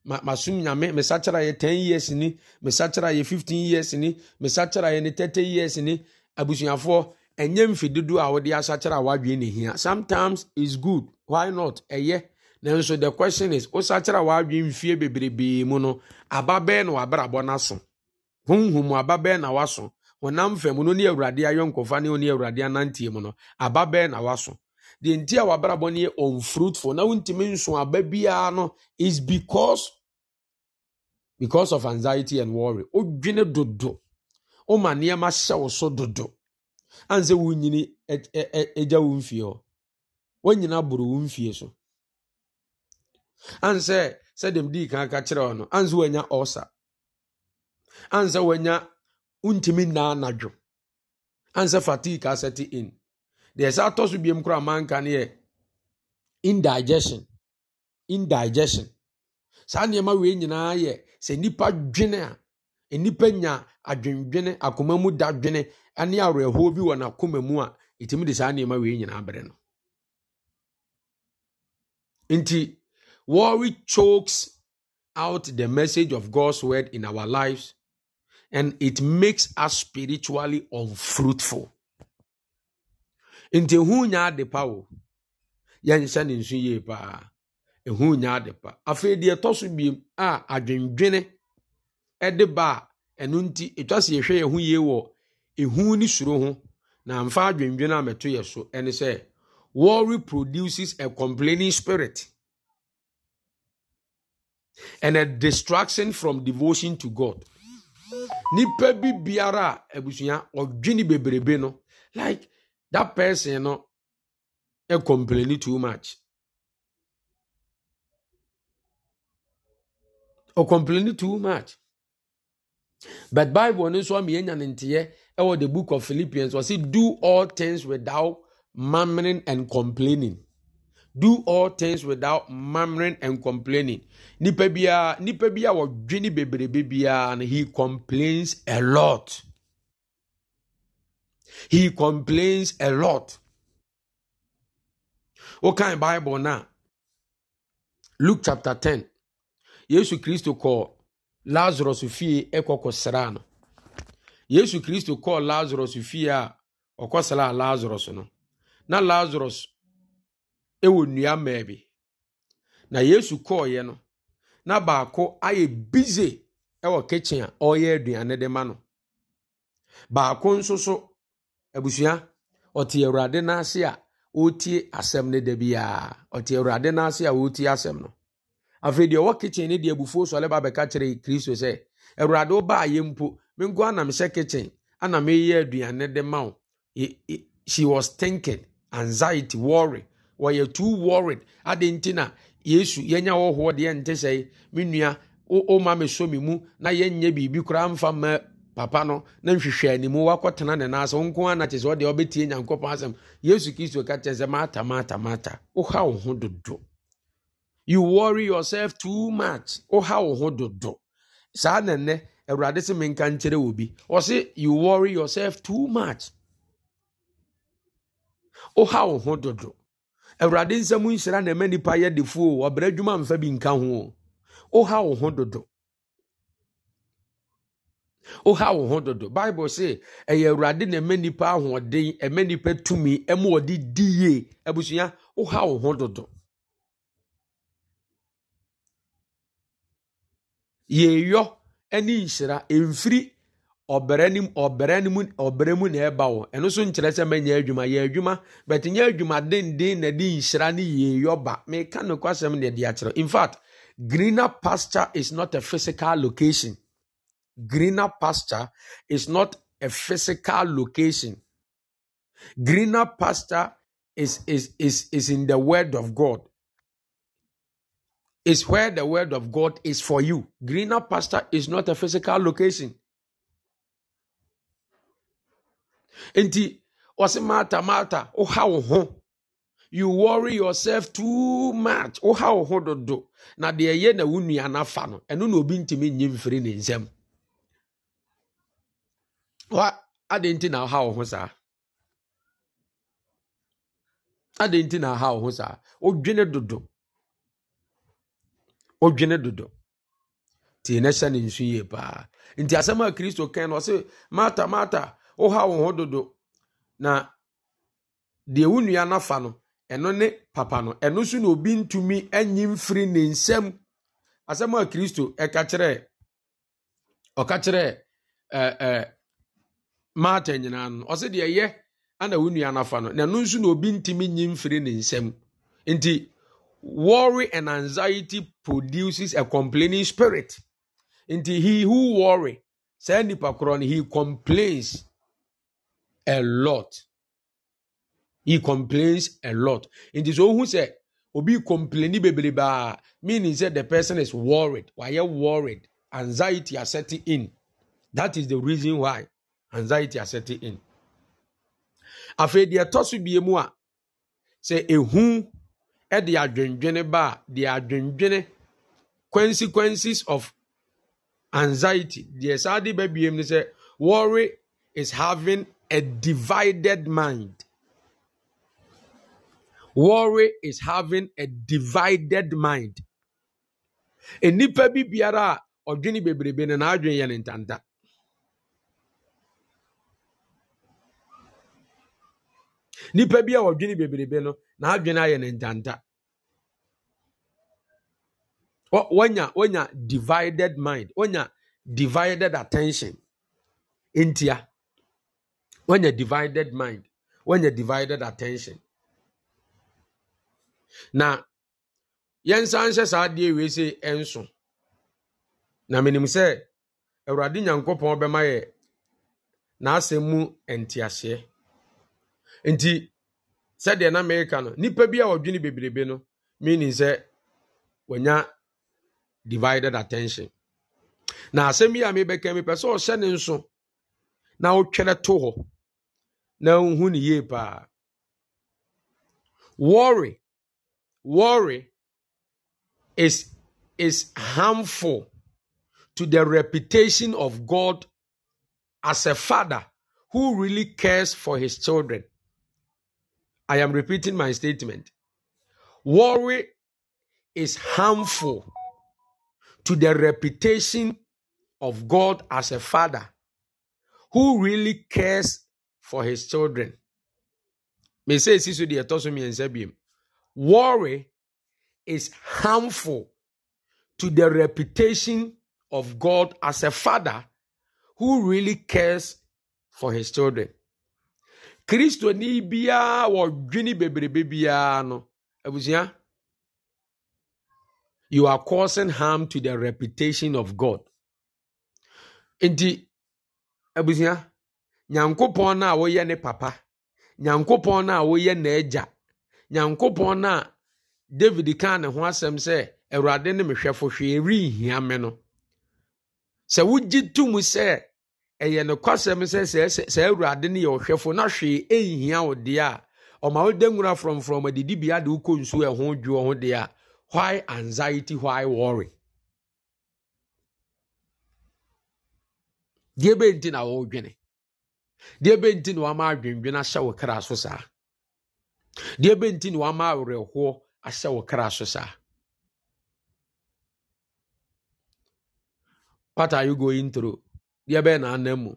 Ma masom nyame mesa kyerɛ ayɛ ten years ni mesa kyerɛ ayɛ fifteen years ni mesa kyerɛ ayɛ ne thirty years ni abusuafoɔ ɛnyɛ mfidido a wɔde asakyerɛ a wadwe ne hia sometimes is good why not ɛyɛ nanso the question is wosakyerɛ a wadwe mfie bebrebee mu no aba bɛɛ na wabrabɔ no aso honhom aba bɛɛ na waso honam fam no ne awurade ayɔnkɔfa ne ɔne awurade anantie mu no aba bɛɛ na waso deɛ nti a wabrabɔ no yɛ unfruitful na wontumi nso aba biara no is because because of anxiety and worry wodwene dodo woma nneɛma hyɛ wo so dodo ane sɛ wonyini agya wo mfie hɔ woanyina boro wo mfie so ane sɛ sɛdeɛ mdii ka ka kyerɛ hɔ no ane sɛ woanya ɔsa ane sɛ woanya wontumi nnaa nadwo ane sɛ fatigue asɛte in deɛ ɛsɛ atɔ so biem koraa manka no yɛ indigestion indigestion saa nneɛma wei nyinaa yɛ sɛ nnipa dwene a nnipa nya adwendwene akoma mu da dwene ne awerɛhoɔ bi wɔ n'akoma mu a ɛtumi de saa nneɛma wei nyinaa no nti worry chokes out the message of god's word in our lives and it makes us spiritually unfruitful nti ehu nya ade pa o yɛnhyɛ ne nsu yie paa ehu nya ade pa afei deɛ ɛtɔ so biem a adwendwene ɛde ba a ɛno nti etwa si ehwɛ yɛn yie wɔ ehu ne suro ho na mfa adwendwene a mɛto yɛ so ɛne sɛ worry produces a complaining spirit and a distraction from devotion to god nipa bi biara abusua ɔdwene bebrebe no like. that person you know, complaining too much or complaining too much but bible no so me enya it was the book of philippians was it do all things without murmuring and complaining do all things without murmuring and complaining Nipebia, nipebia was biara wɔdwe and he complains a lot. He complains a lot. Okay, Bible now. Luke chapter 10. Yesu Kristo kɔɔ Lazarus fie ɛkɔkɔsraa no. Yesu Kristo kɔɔ Lazarus fie a ɔkɔsraa Lazarus no. Na Lazarus ɛwɔ nnua mmaa bi. Na Yesu kɔɔeɛ no, na baako ayɛ bize ɛwɔ kitchen a ɔreyɛ aduane de ma no. Baako nso so abusua ɔte awurade n'ase a ɔretie asɛm no da biara ɔte awurade n'ase a ɔretie asɛm no afei deɛ ɔwɔ kitchen ne deɛ abufuo sɔle ba bɛka kyerɛ kristo sɛ awurade ɔbaa yɛ mpo menko ana mehyɛ kitchen ana meyɛ aduane de ma wo she was thinking anxiety worry wɔyɛ too worried ade nti na yesu yɛnya wɔhoɔ deɛ nte sɛ me nua ɔma me so mu na yɛnyɛ biribi koraa mfa mma papa no na nhwehwɛ animu wakɔtena ne nan ase wo nko ana kye sɛ ɔde ɔbɛtie nyankopɔn asɛm yesu kristo ka kyerɛ sɛ maata maata maata woha wo ho dodo you worry yourself too much woha wo ho dodo saa nɛnɛ awurade se menka nkyerɛ wɔ bi ɔse you worry yourself too much woha wo ho dodo awurade nsɛm nhyira na ɛma nnipa yɛ defuo ɔbrɛ adwuma mfa bi nka ho woha wo ho dodo woha wo ho dodo bible se ɛyɛ awurade na ɛma nipa ahoɔden ɛma nipa tumi ɛma ɔde di yie abusua woha wo ho dodo yɛyɔ ne nhyira ɛmfiri ɔbrɛ nim ɔbrɛ nim ɔbrɛ mu na ɛba wo ɛno so nkyerɛ sɛ mɛnyɛ adwuma yɛ adwuma bɛte nyɛ adwuma denden na de nhyira ne yɛyɔ ba meka nokwasɛm na de akyerɛ in fact greener pasture is not a physical location greener pasture is not a physical location. Greener pasture is, is, is, is in the word of God. It's where the word of God is for you. Greener pasture is not a physical location. Enti, what's matter, mata, Oh, how, you worry yourself too much. Oh, how, do, do. Na, the, ye, na, unu, ya, na, fa, no. Enu, no, binti, nyim, adịn ntị na ha wo saa adịn nti na ha wo ho saa odwene dodo odwene dodo tie na hyɛ ne nsu yie paa nti asɛm a kristo kan no ɔse mata mata woha wo ho dodo na deɛ wo nua nafa no ɛno ne papa no ɛno so na obi ntumi enyi mfiri ne nsam asɛm a kristo ɛka kyerɛ ɔka kyerɛ ɛɛ ɛɛ maata nyinaa no ɔsɛ deɛ ɛyɛ ana wo nua nafa no na no nso na obi ntumi nyi mfiri ne nsam nti worry and anxiety produces a complaining spirit nti he who worry saa nipa korɔ no he complains a lot he complains a lot nti sɛ ohun sɛ obi complaini bebrebe a meaning sɛ the person is worried wayɛ worried anxiety are setting in that is the reason why. anxiety asɛte in afei deɛ ɛtɔ so bie mu a sɛ ehu ɛde adwendwene ba deɛ adwendwene consequences of anxiety deɛ saa de ba bie mu sɛ worry is having a divided mind worry is having a divided mind nnipa bi biara a ɔdwene bebrebe na n'adwene yɛ ne ntanta. nipa bi a wɔdwene bebrebe no n'adwene ayɛ ne ndanda wɔnya wɔnya divided mind wɔnya divided attention ntia wɔnya divided mind wɔnya divided attention na yɛnsan hyɛ saa adeɛ wei sɛ ɛnso na menim sɛ awurade nyankopɔn bɛma yɛ n'asɛm mu nteaseɛ nti sɛdeɛ na mereka no nipa bi a wɔdwene bebrebe no meaning sɛ wɔnya divided attention na asɛm yi a mebɛka mepɛ sɛ ɔhyɛ ne nso na wotwerɛ to hɔ na wohu ne yie paa worry worry is is harmful to the reputation of god as a father who really cares for his children I am repeating my statement. Worry is harmful to the reputation of God as a father who really cares for his children. Worry is harmful to the reputation of God as a father who really cares for his children. kristoni biara wɔdwene bebrebe biara no abusua you are causing harm to the reputation of god nti abusua nyankopɔn no a woyɛ ne papa nyankopɔn na a na n'agya nyankopɔn na a david kaa ne ho asɛm sɛ awurade ne mehwɛfo hwee renhia me no sɛ wogye tum sɛ ɛyɛ no kwasɛm sɛ saa awurade no yɛ ɔhwɛfo na hwee ɛnhia wo deɛ a ɔma wode nwura frɔmfrɔm adidibea de wokɔ nsuo ɛho dwoɔ ho deɛ a why anxiety why worry deɛ bɛnti na wɔredwene deɛ bɛnti na wama adwendwene ahyɛ wo kra so saa deɛ bɛnti na wama awerɛhoɔ ahyɛ wo kra so saa what are you going through deɛ bɛyɛ mu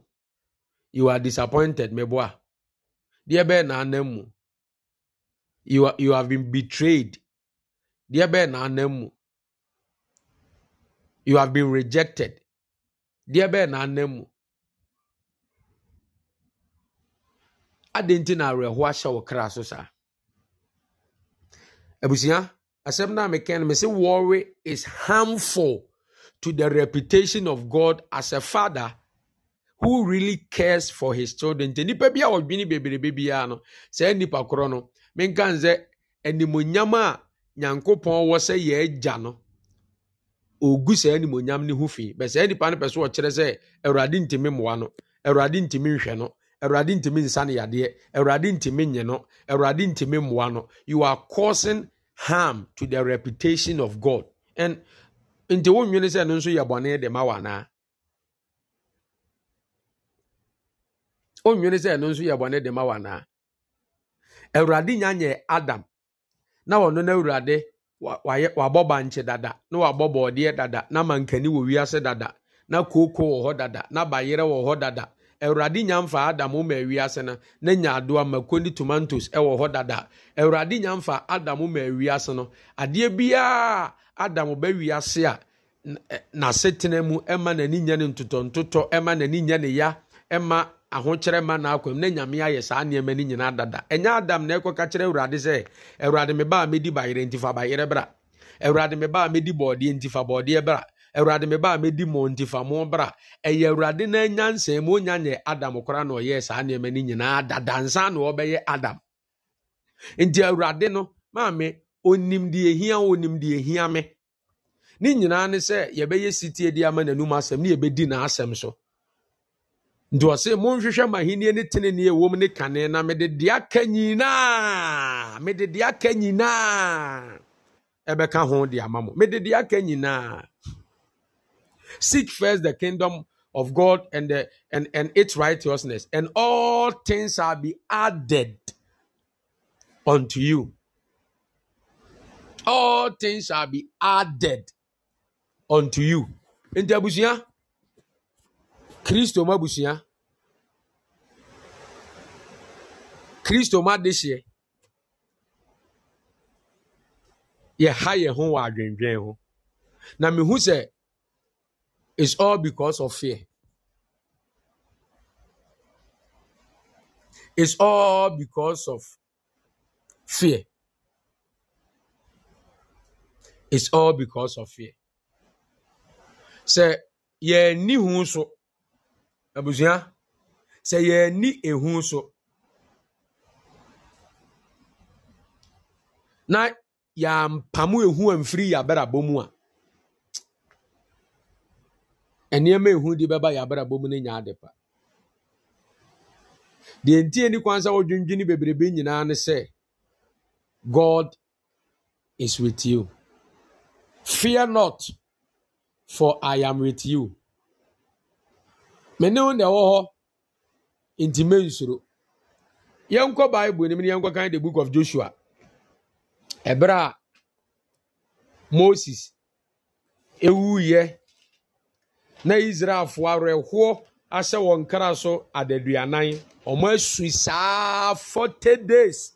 you are disappointed meboa deɛ bɛyɛ mu you are, you have been betrayed deɛ bɛyɛ mu you have been rejected deɛ bɛyɛ n'anan mu adi nti na awerɛho ahyɛ wɔ kra so saa abusua asɛm no a meka no mese worry is harmful to the reputation of god as a father who really cares for his children nti nipa bi a ɔdwene bebrebe biara no saa nipa korɔ no menka n sɛ animonyam a nyankopɔn wɔ sɛ yɛ agya no ogu saa animonyam ne ho fi bɛ saa nipa no pɛ so ɔkyerɛ sɛ awurade ntumi mmoa no awurade ntumi nhwɛ no awurade ntumi nsa ne yadeɛ awurade ntumi nye no awurade ntumi mmoa no you are causing harm to the reputation of god and nti wɔn nwene sɛ no nso yɛ bɔne de ma wɔn anaa. onwere sɛ ɛno nso yɛ bɔne de ma wa naa awurade nya nyɛ adam na wɔno no awurade wabɔ bankye dada na wabɔ bɔɔdeɛ dada na mankani wɔ wiase dada na kooko wɔ hɔ dada na bayerɛ wɔ hɔ dada awurade nya mfa adam ma awiase no na nya adoa mako ne tomatoes wɔ hɔ dada awurade nya mfa adam ma awiase no adeɛ biara adam ba wiase a n'asetena mu ma n'ani nya ne ntotɔntotɔ ma n'ani nya ne ya ma ahokyerɛ ma na akwam na nyame ayɛ saa nneɛma no nyinaa dada ɛnyɛ adam na ɛkɔka kyerɛ awurade sɛ awurade me baa mɛdi bayerɛ nti fa bayerɛ bra awurade me baa mɛdi bɔɔdeɛ nti fa bɔɔdeɛ bra awurade me baa mɛdi mɔ nti fa mo bra ɛyɛ awurade na anya nsɛn mu onya nyɛ adam koraa na ɔyɛɛ saa nneɛma no nyinaa dada nsa na ɔbɛyɛ adam nti awurade no maame onim deɛ ehia onim deɛ ehia me ne nyinaa ne sɛ yɛbɛyɛ sitie de ama n'anum asɛm ne yɛbɛdi n'asɛm so nti ɔse monhwehwɛ mahenni ne tenenee wom ne kane na mede de aka nyinaa mede de aka nyinaa ɛbɛka ho de ama mo mede de aka nyinaa seek first the kingdom of God and the, and and its righteousness and all things shall be added unto you all things shall be added unto you nti abusua kristo mu abusua kristo mu adehyeɛ yɛha yɛn ho wɔ adwendwen ho na mehu sɛ it's all because of fear it's all because of fear it's all because of fear sɛ yɛn ni hu so abusua sɛ yɛni ehu so na yɛampamu ehu amfiri yɛabrabɔ mu a nneɛma ehu de bɛba yɛabrabɔ mu ne nyɛ ade pa deɛ nti ani kwan sɛ wɔdwendwene bebrebe nyinaa ne sɛ god is with you fear not for i am with you mene wo na ɛwɔ hɔ nti nsoro yɛnkɔ bible nim na yɛnkɔ kan the book of joshua ɛberɛ a moses ewuiɛ na israelfoɔ awerɛhoɔ ahyɛ wɔn kra so adaduanan wɔn asui saa forty days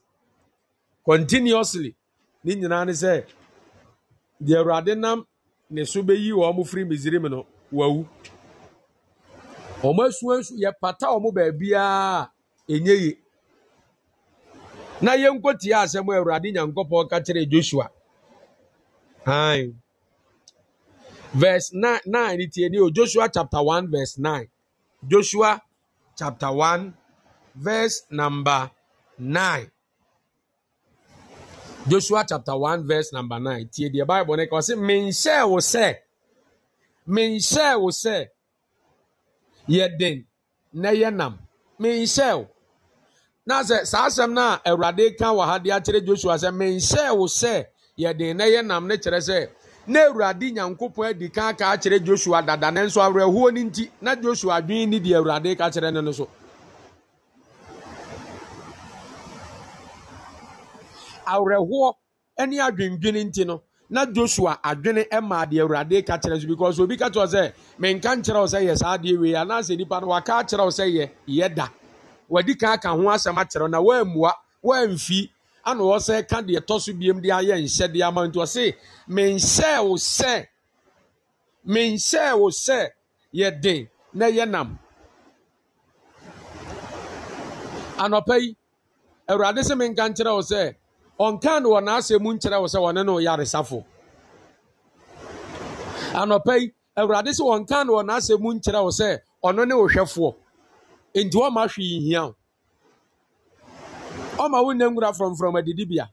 continuously ne nyinaa ne sɛ deɛ awurade nam ne so bɛyi wɔn firi misiri mu no wawu. wɔn asuansu pata wɔn baabiara enye yie na yɛnkotie asɛm a awurade nyankopɔn ka kyerɛ joshua han verse nine nine tie ni o joshua chapter one verse nine joshua chapter one verse number nine joshua chapter one verse number nine tie deɛ bible ne ka ɔsi minhyɛ wo sɛ minhyɛ wo sɛ yɛ den na yɛ nam menhyɛw na sɛ saa asɛm no awurade ka wɔ ha de akyerɛ joshua sɛ menhyɛɛ wo sɛ yɛde na yɛ nam ne kyerɛ sɛ na awurade nyankopɔn adi ka aka akyerɛ joshua dada ne nso awerɛhoɔ no nti na joshua adwene ne deɛ awurade ka kyerɛ no no so awerɛhoɔ ne adwendwene nti no na joshua adwene maa deɛ awurade ka kyerɛ so because obi ka kyerɛ sɛ menka nkyerɛ sɛ yɛ saa adeɛ wei anaasɛ nipa no waka akyerɛ sɛ yɛ yɛ da wadi ka aka ho asɛm akyerɛ na woammua woamfi ana wɔsɛ ka deɛ tɔ so biam de ayɛ nhyɛdeɛ ama nti ɔse menhyɛɛ wo sɛ menhyɛɛ wo sɛ yɛ den na yɛ nam anɔpa yi awurade sɛ menka nkyerɛ wo sɛ ɔnkan no wɔ n'asɛm mu nkyerɛ wo sɛ wɔne no yaresafo anɔpɛ yi awurade sɛ ɔnkan no wɔ n'asɛm mu nkyerɛ wo sɛ ɔno ne wohwɛfoɔ nti ɔma hwee hia wo ɔma wo nnangura frɔmfrɔm adidibea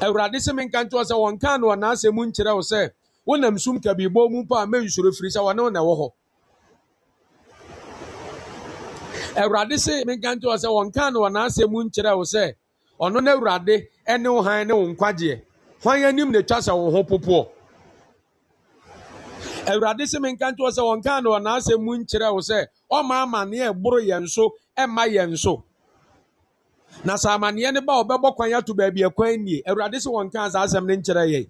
awurade sɛ menka nkyerɛ sɛ wɔnkan no wɔ n'asɛm mu nkyerɛ wo sɛ wonam sum kabibɔ mu mpo a mɛnsuro firi sɛ wɔne wo na ɛwɔ hɔ awurade sɛ menka nkyerɛ sɛ wɔnkan no wɔ n'asɛm mu nkyerɛ wo sɛ ɔno na awurade ne wo han ne wo nkwagyeɛ hwan anim na ɛtwa sɛ wo ho popoɔ awurade sɛ menka ntoɔ sɛ wɔnka na ɔnaasɛ mu nkyerɛ wo sɛ ɔma amanneɛ ɛboro yɛn so ɛmma yɛn so na sɛ amanneɛ no ba ɔbɛbɔ kwan ato baabi ɛkwan nie awurade sɛ wɔnka saa asɛm no nkyerɛ yɛn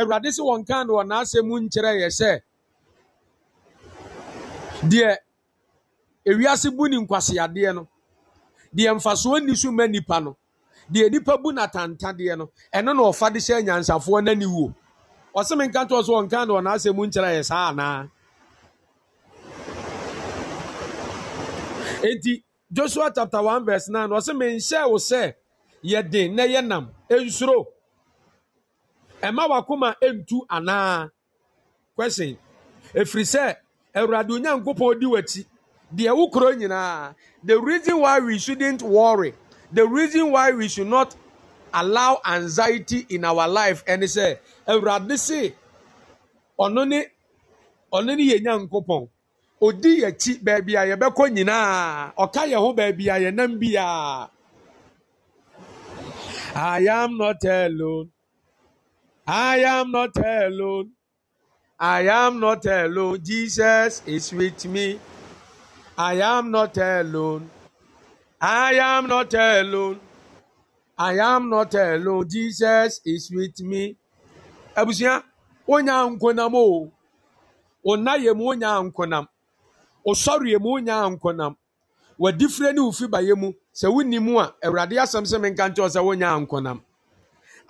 awurade sɛ wɔnka na ɔnaasɛ mu nkyerɛ yɛ sɛ deɛ ewiase bu ne nkwaseadeɛ no deɛ mfasoɔ nni so ma nipa no deɛ nipa bu n'atantadeɛ no ɛno na ɔfa de hyɛ nyansafoɔ n'ani wuo ɔsɛm nka toɔ so ɔnka na ɔnaasɛ mu nkyerɛ yɛ saa anaa enti joshua chapter one verse nine ɔsɛm nhyɛ wo sɛ yɛde na yɛ nam nsuro ɛma wakoma ntu anaa question ɛfiri sɛ awurade onyankopɔn di w'akyi The wokuro the reason why we shouldn't worry the reason why we should not allow anxiety in our life And he said, se ɔno ne ɔno ne yɛ nyankopɔn odi yɛkyi baabi a yɛbɛkɔ nyinaa ɔka yɛn ho baabi a yɛnam I am not alone. I am not alone. I am not alone. Jesus is with me. I am not alone. I am not alone. I am not alone. Jesus is with me. Abusua, onye a nkwonam o. Ọna yam onye a nkwonam. Ọsọrọ yam onye a nkwonam. Wadifire ne ofi ba yam. Sɛ wonni mu a, Awurade asɛm sɛ menka nkyɛw sɛ onye a nkwonam.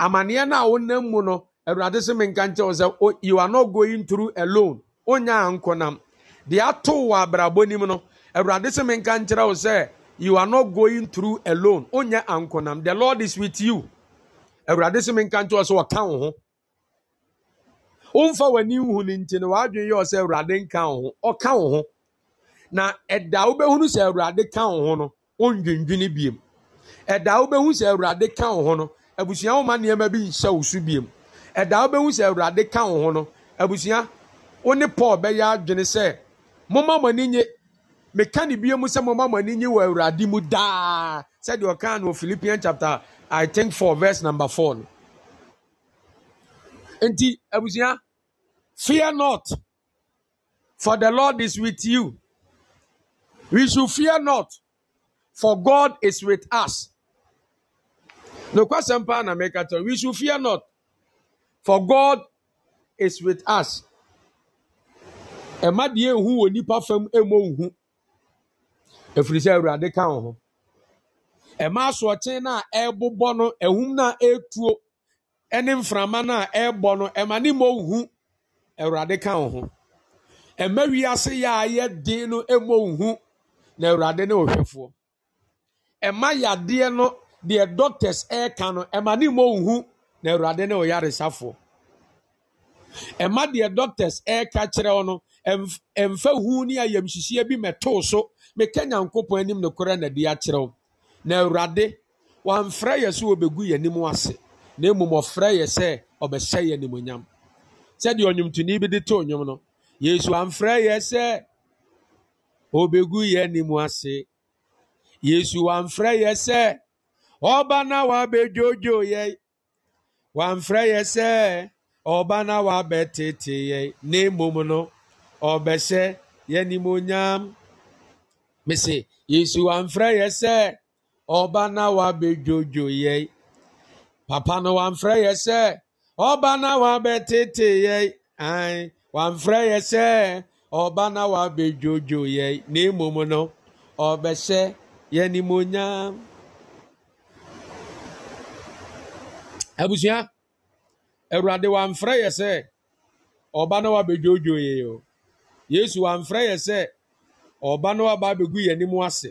na no a wonam mu no, Awurade sɛ menka nkyɛw sɛ you are not going through alone. Onye a nkwonam. Deɛ atoo wɔ no, awurade sɛ menka nkyerɛ wo sɛ you are not going through alone onyɛ ankonam the lord is with you awurade sɛ menka nkyerɛ wo sɛ wɔka wo ho womfa w'ani nhu no nti na ɛda wobɛhunu sɛ awurade ka wo ho no wondwendwene biem ɛda wobɛhu sɛ awurade ka wo ho no abusua woma nneɛma bi nhyɛ wo so biem ɛda wobɛhu sɛ awurade meka ne bie mu sɛ moma mo ani nye wɔ awurade mu daa sɛdeɛ ɔka no philippian chapter i think four verse number four no nti abusua fear not for the lord is with you we should fear not for god is with us nokwasɛm paa na meka kyerɛ we should fear not for god is with us ɛma deɛ ehu wɔ nipa fam emu ohu. ɛfiri sɛ awurade ka wo ho ɛma asoɔkye na a ɛrebobɔ no ɛhum na etuo ɛne mframa na a no ɛma ne mmɔ nhu awurade ka wo ho ɛma wiase yɛ a yɛ den no mmɔ nhu na awurade ne ɔhwɛfoɔ ɛma yadeɛ no deɛ doctors ɛreka no ɛma ne mmɔ nhu na awurade ne ɔyaresafoɔ ɛma deɛ doctors ɛreka kyerɛ no mfa hu ne ayamhyehyɛ bi mɛtoo so meka nyankopɔn anim nokorɛ na de akyerɛ wo na awurade wamfrɛ yɛ so wɔbɛgu yɛ anim ase na mmom ɔfrɛ yɛ sɛ ɔbɛhyɛ yɛ nimonyam sɛdeɛ ɔnwomtoni bi de too nnwom no yesu amfrɛ yɛ sɛ ɔbɛgu yɛ anim ase yesu wamfrɛ yɛ sɛ ɔba na wabɛdwodwo yɛ wamfrɛ yɛ sɛ ɔba na wabɛtete yɛ na mmom no ɔbɛhyɛ yɛ nimonyam mese yesu wamfrɛ yɛ sɛ ɔba na wabɛdwodwo yɛ papa no wamfrɛ yɛ sɛ ɔba na wabɛtete yɛ an wamfrɛ yɛ sɛ ɔba na wabɛdwodwo yɛ na mmom no ɔbɛhyɛ yɛ nimonyam abusua awurade wamfrɛ yɛ sɛ ɔba na wabɛdwodwo yɛ o yesu wamfrɛ yɛ sɛ ɔba no aba abɛgu yɛn anim ase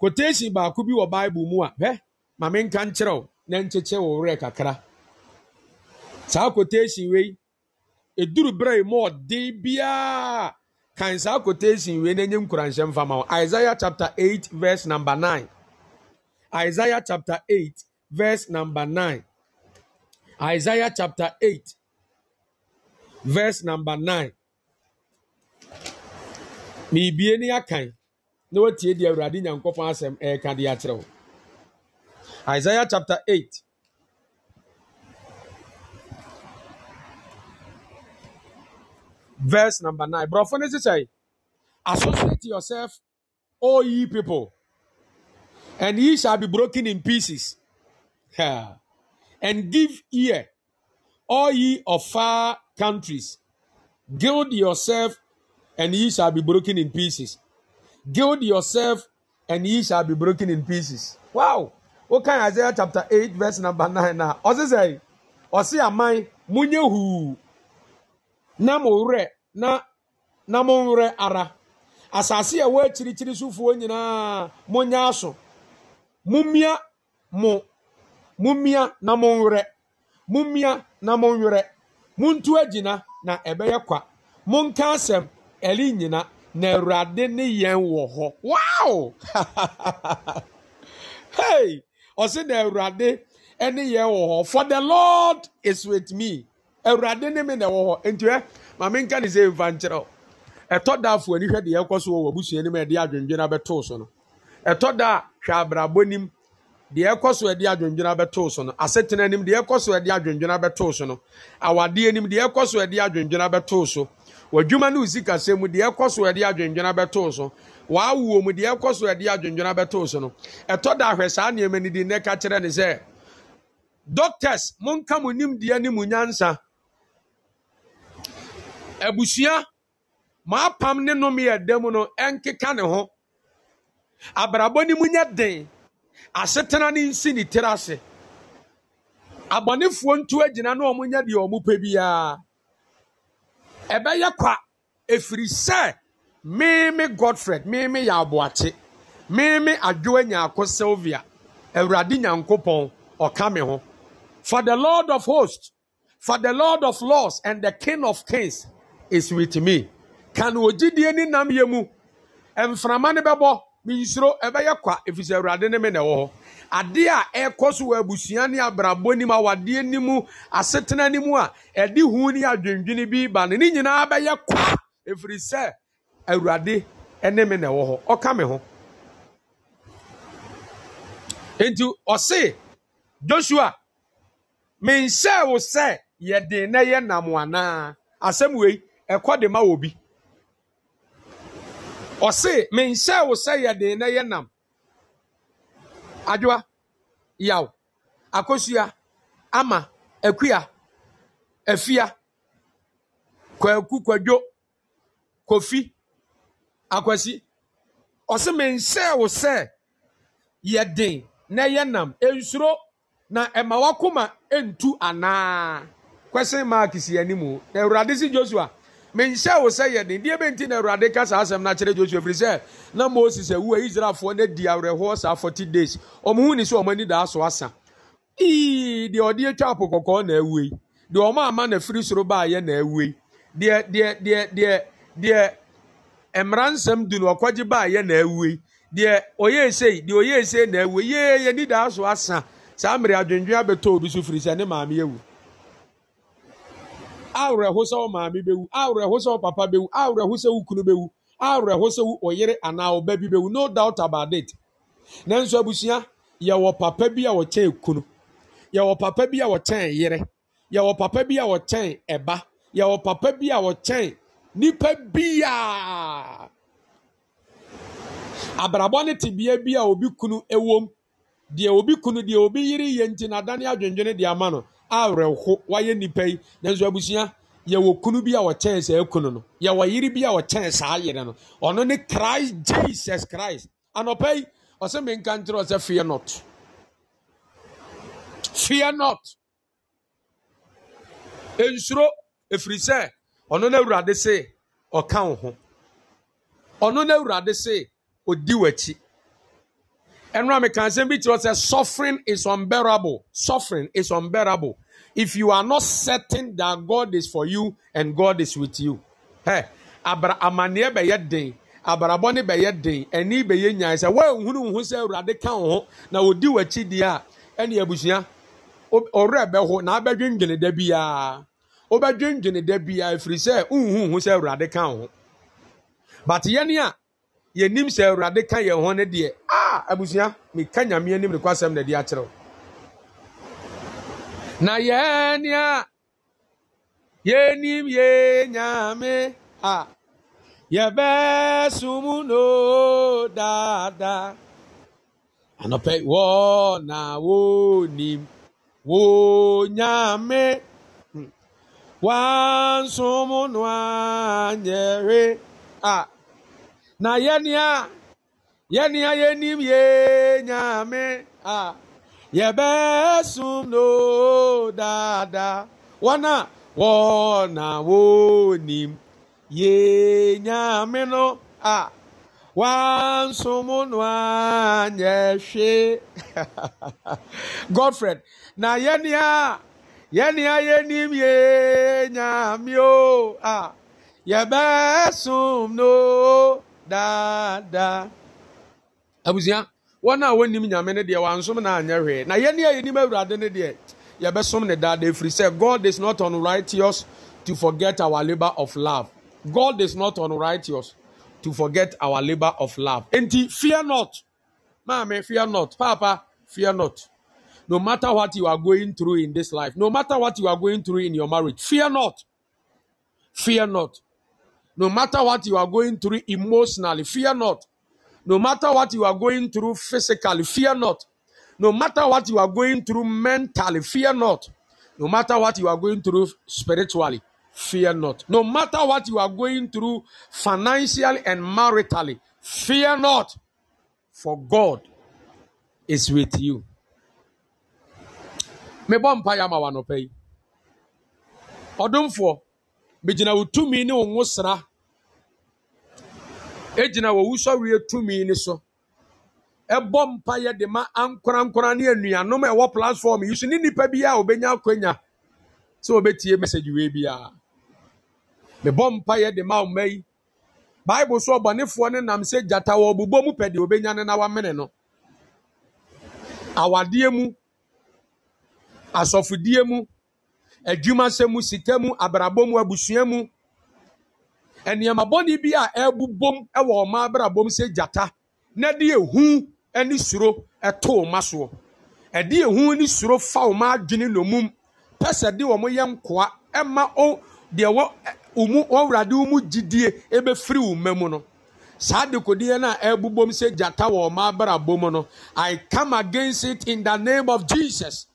quotation baako bi wɔ bible mu a hɛ maame nka nkyerɛw na nkyekyɛ wɔ werɛ kakra saa quotation wei eduru berɛ yi mu ɔden biara kan saa quotation wei na nye nkuranhyɛ mfa ma wɔn isaiah chapter eight verse number nine isaiah chapter eight verse number nine isaiah chapter eight verse number nine. meebie ne akan na watie deɛ awurade nyankopɔn asɛm ɛreka de akyerɛ wo isaiah chapter 8 verse number 9 borɔfo no sesɛe associate yourself all ye people and ye shall be broken in pieces and give ear all ye of far countries gild yourself and ye shall be broken in pieces. Gild yourself, and ye shall be broken in pieces. Wow! o Okay, Isaiah chapter 8, verse number 9. Now, Ose say, Ose amai, munye hu, na mure, na, na mure ara. Asasi ya we chiri chiri sufu wenye na munya aso. Mumia, mo, mumia na mure. Mumia na mure. Muntu ejina na ebeye kwa. Munka asem, ɛne nyina na awurade ne yɛn wɔ hɔ wow *laughs* hey ɔsi na awurade ne yɛn wɔ hɔ for the lord is with me awurade ne mi na ɛwɔ hɔ ntiɛ maame nka ne se nfa nkyerɛ o ɛtɔ da afɔ ani hwɛ deɛ ɛkɔ so wɔ abusua anim a yɛde adwendwena bɛto so no ɛtɔ da hwɛ abrabɔ nim deɛ ɛkɔ so yɛde adwendwena bɛto so no asetena anim deɛ ɛkɔ so yɛde adwendwena bɛto so no awadeɛ anim deɛ ɛkɔ so yɛde adwendwena bɛto so w'adwuma ne wo sikasɛm mu deɛ ɛkɔ so yɛde adwendwena bɛtoo so w'awoɔ mu deɛ ɛkɔ so yɛde adwendwena bɛtoo so no ɛtɔ da ahwɛ saa nneɛma no di nnɛ ka kyerɛ ne sɛ doctors monka mo nimdeɛ ne mo nyansa abusua maapam ne nom yɛ dam no ɛnkeka ne ho abrabɔ ne mu nyɛ den asetena ne nsi ne tiri ase abɔnefoɔ ntu agyina na ɔmo nyɛ deɛ ɔmo pɛ biara ɛbɛyɛ kwa ɛfiri sɛ mímí godfred mímí yɛ aboakye mímí adwoa nyaako sylvia awurade nyankopɔn ɔka me ho for the lord of hosts for the lord of laws and the king of kings is with me kan ogyidie ne yɛ mu mframa ne bɛbɔ. minsuro ɛbɛyɛ kwa efisɛ awurade ne me na ɛwɔ hɔ adeɛ a ɛkɔ so wɔ abusua ne abrabɔ nim awadeɛ nim asetena nim a ɛde hu ne adwendwene bi ba no ne nyinaa bɛyɛ kwa efiri sɛ awurade ne me na ɛwɔ hɔ ɔka me ho nti ɔse joshua menhyɛ wo sɛ yɛde na yɛ nam anaa asɛm wei ɛkɔ de ma wɔ bi ɔse menhyɛ wo sɛ yɛde na yɛ nam Adwa, yaw akosua ama akua afia kwaku kwadwo kofi akwasi ɔse menhyɛ wo sɛ yɛden na yɛ nam nsuro na ɛma wakoma ntu anaa question maa si anim na awurade si joshua menhyɛ wo sɛ yɛ den deɛ nti na awurade ka saa asɛm no akyerɛ josua ɛfiri sɛ na moses awu a israelfoɔ no adi awerɛhoɔ saa 40 days ɔmo hu ni sɛ ɔmo ani daa so asa ii deɛ ɔde atwa apo kɔkɔɔ na awu yi deɛ ɔmo ama na firi soro baayɛ na awu yi deɛ deɛ deɛ deɛ deɛ mmaransɛm du no ɔkɔgye baayɛ na awu yi deɛ ɔyɛ esei deɛ ɔyɛ esei na awu yi yee yɛ ani daa so asa saa mmiri adwendwen abɛtɔ obi so firi sɛ ne maame yɛ wu awụrụ sɛ maami maame awụrụ awerɛho papa bɛwu awụrụ sɛ wo kunu awụrụ awerɛho sɛ ana ɔyere anaa bi bɛwu no doubt about it nanso abusua yɛwɔ papa bi a wɔkyɛn kunu yɛwɔ papa bi a wɔkyɛn yere yɛwɔ papa bi a wɔkyɛn ɛba yɛwɔ papa bi a wɔkyɛn nipa biaa abrabɔ ne tebea bi a obi kunu ɛwom deɛ obi kunu deɛ obi yere yɛ nti na adane adwendwene deɛ ama no awerɛho wayɛ nnipa yi nanso abusua yɛwɔ kunu bi a wɔkyɛn saa kunu no yɛwɔ yere bi a wɔkyɛn saa yere no ɔno ne christ jesus christ anɔpa yi ɔsɛ menka nkyerɛ ɔsɛ fear not fear not nsuro ɛfiri sɛ ɔno no awurade se ɔka wo ho ɔno no awurade se ɔdi w'akyi ɛnora meka nsɛm bi kyerɛ sɛ suffering is unbearable suffering is unbearable if you are not certain that God is for you and God is with you. Hey, abra amaneɛ bɛyɛ den abarabɔ ne bɛyɛ den ɛni bɛyɛ nyaa sɛ wɔnhunu nhun sɛ awurade ka wɔn ho na odi wɔakyi deɛ a ɛne abusua ɔwerɛ bɛho na abɛdwendwene da biara ɔbɛdwendwene da biara efiri sɛ nhun nhun sɛ awurade ka wɔn ho but yɛn a yɛnim sɛ awurade oh, ka yɛn ho ne deɛ a ah, abusua mika nyamea nim ne kɔ asɛm na na yɛn nea yɛnim yɛ nyame a yɛbɛsom no daadaa anɔpɛ wɔ na wonim wo nyame hmm. wansom no anyɛre a na yɛnea yɛnea yɛnim yɛ nyame a yɛbɛsum no dada wɔn a wɔn a wɔnim yenyame no a wansum no anyɛ hwee *laughs* godfred na yɛnia yɛnia yɛnim yenyame o a yɛbɛsum no dada abusua. wɔn a wɔnim nyame no deɛ wansom na anyɛ hwee na yɛn a yɛnim awurade no deɛ yɛbɛsom ne daa efiri sɛ god is not unrighteous to forget our labour of love god is not unrighteous to forget our labour of love nti fear not maame fear not papa fear not no matter what you are going through in this life no matter what you are going through in your marriage fear not fear not no matter what you are going through emotionally fear not no matter what you are going through physically, fear not. No matter what you are going through mentally, fear not. No matter what you are going through spiritually, fear not. No matter what you are going through financially and maritally, fear not. For God is with you. mebɔ mpa yɛ ama wa nɔpɛ yi ɔdomfoɔ megyina egyina wɔwusɔreɛ tumi ni so ɛbɔ mpa yɛ de ma ankorankora ne anuanom a ɛwɔ platform yi so ne nipa bi a obenya akonya sɛ obetie message wei biara mebɔ mpa yɛ de ma ɔma yi bible so ɔbɔnefoɔ ne nam sɛ gyata wɔ ɔbobɔ mu pɛ deɛ obenya ne na wamene no awadeɛ mu asɔfodie mu adwumasɛ mu sika mu abrabɔ mu abusua mu nneɛma bɔne bi a ɛbobom wɔ ɔma abrabom sɛ gyata na de ehu ne suro to ɔma soɔ ɛde ehu ne suro fa ɔma adwene nomum pɛ sɛ de wɔn yɛ nkoa ɛma o deɛ wɔ ɔmu ɔwurade ɔmu gyidie ebɛfiri ɔma mu no saa dekodeɛ no a ɛbobom sɛ gyata wɔ ɔma abrabom no i come against it in the name of jesus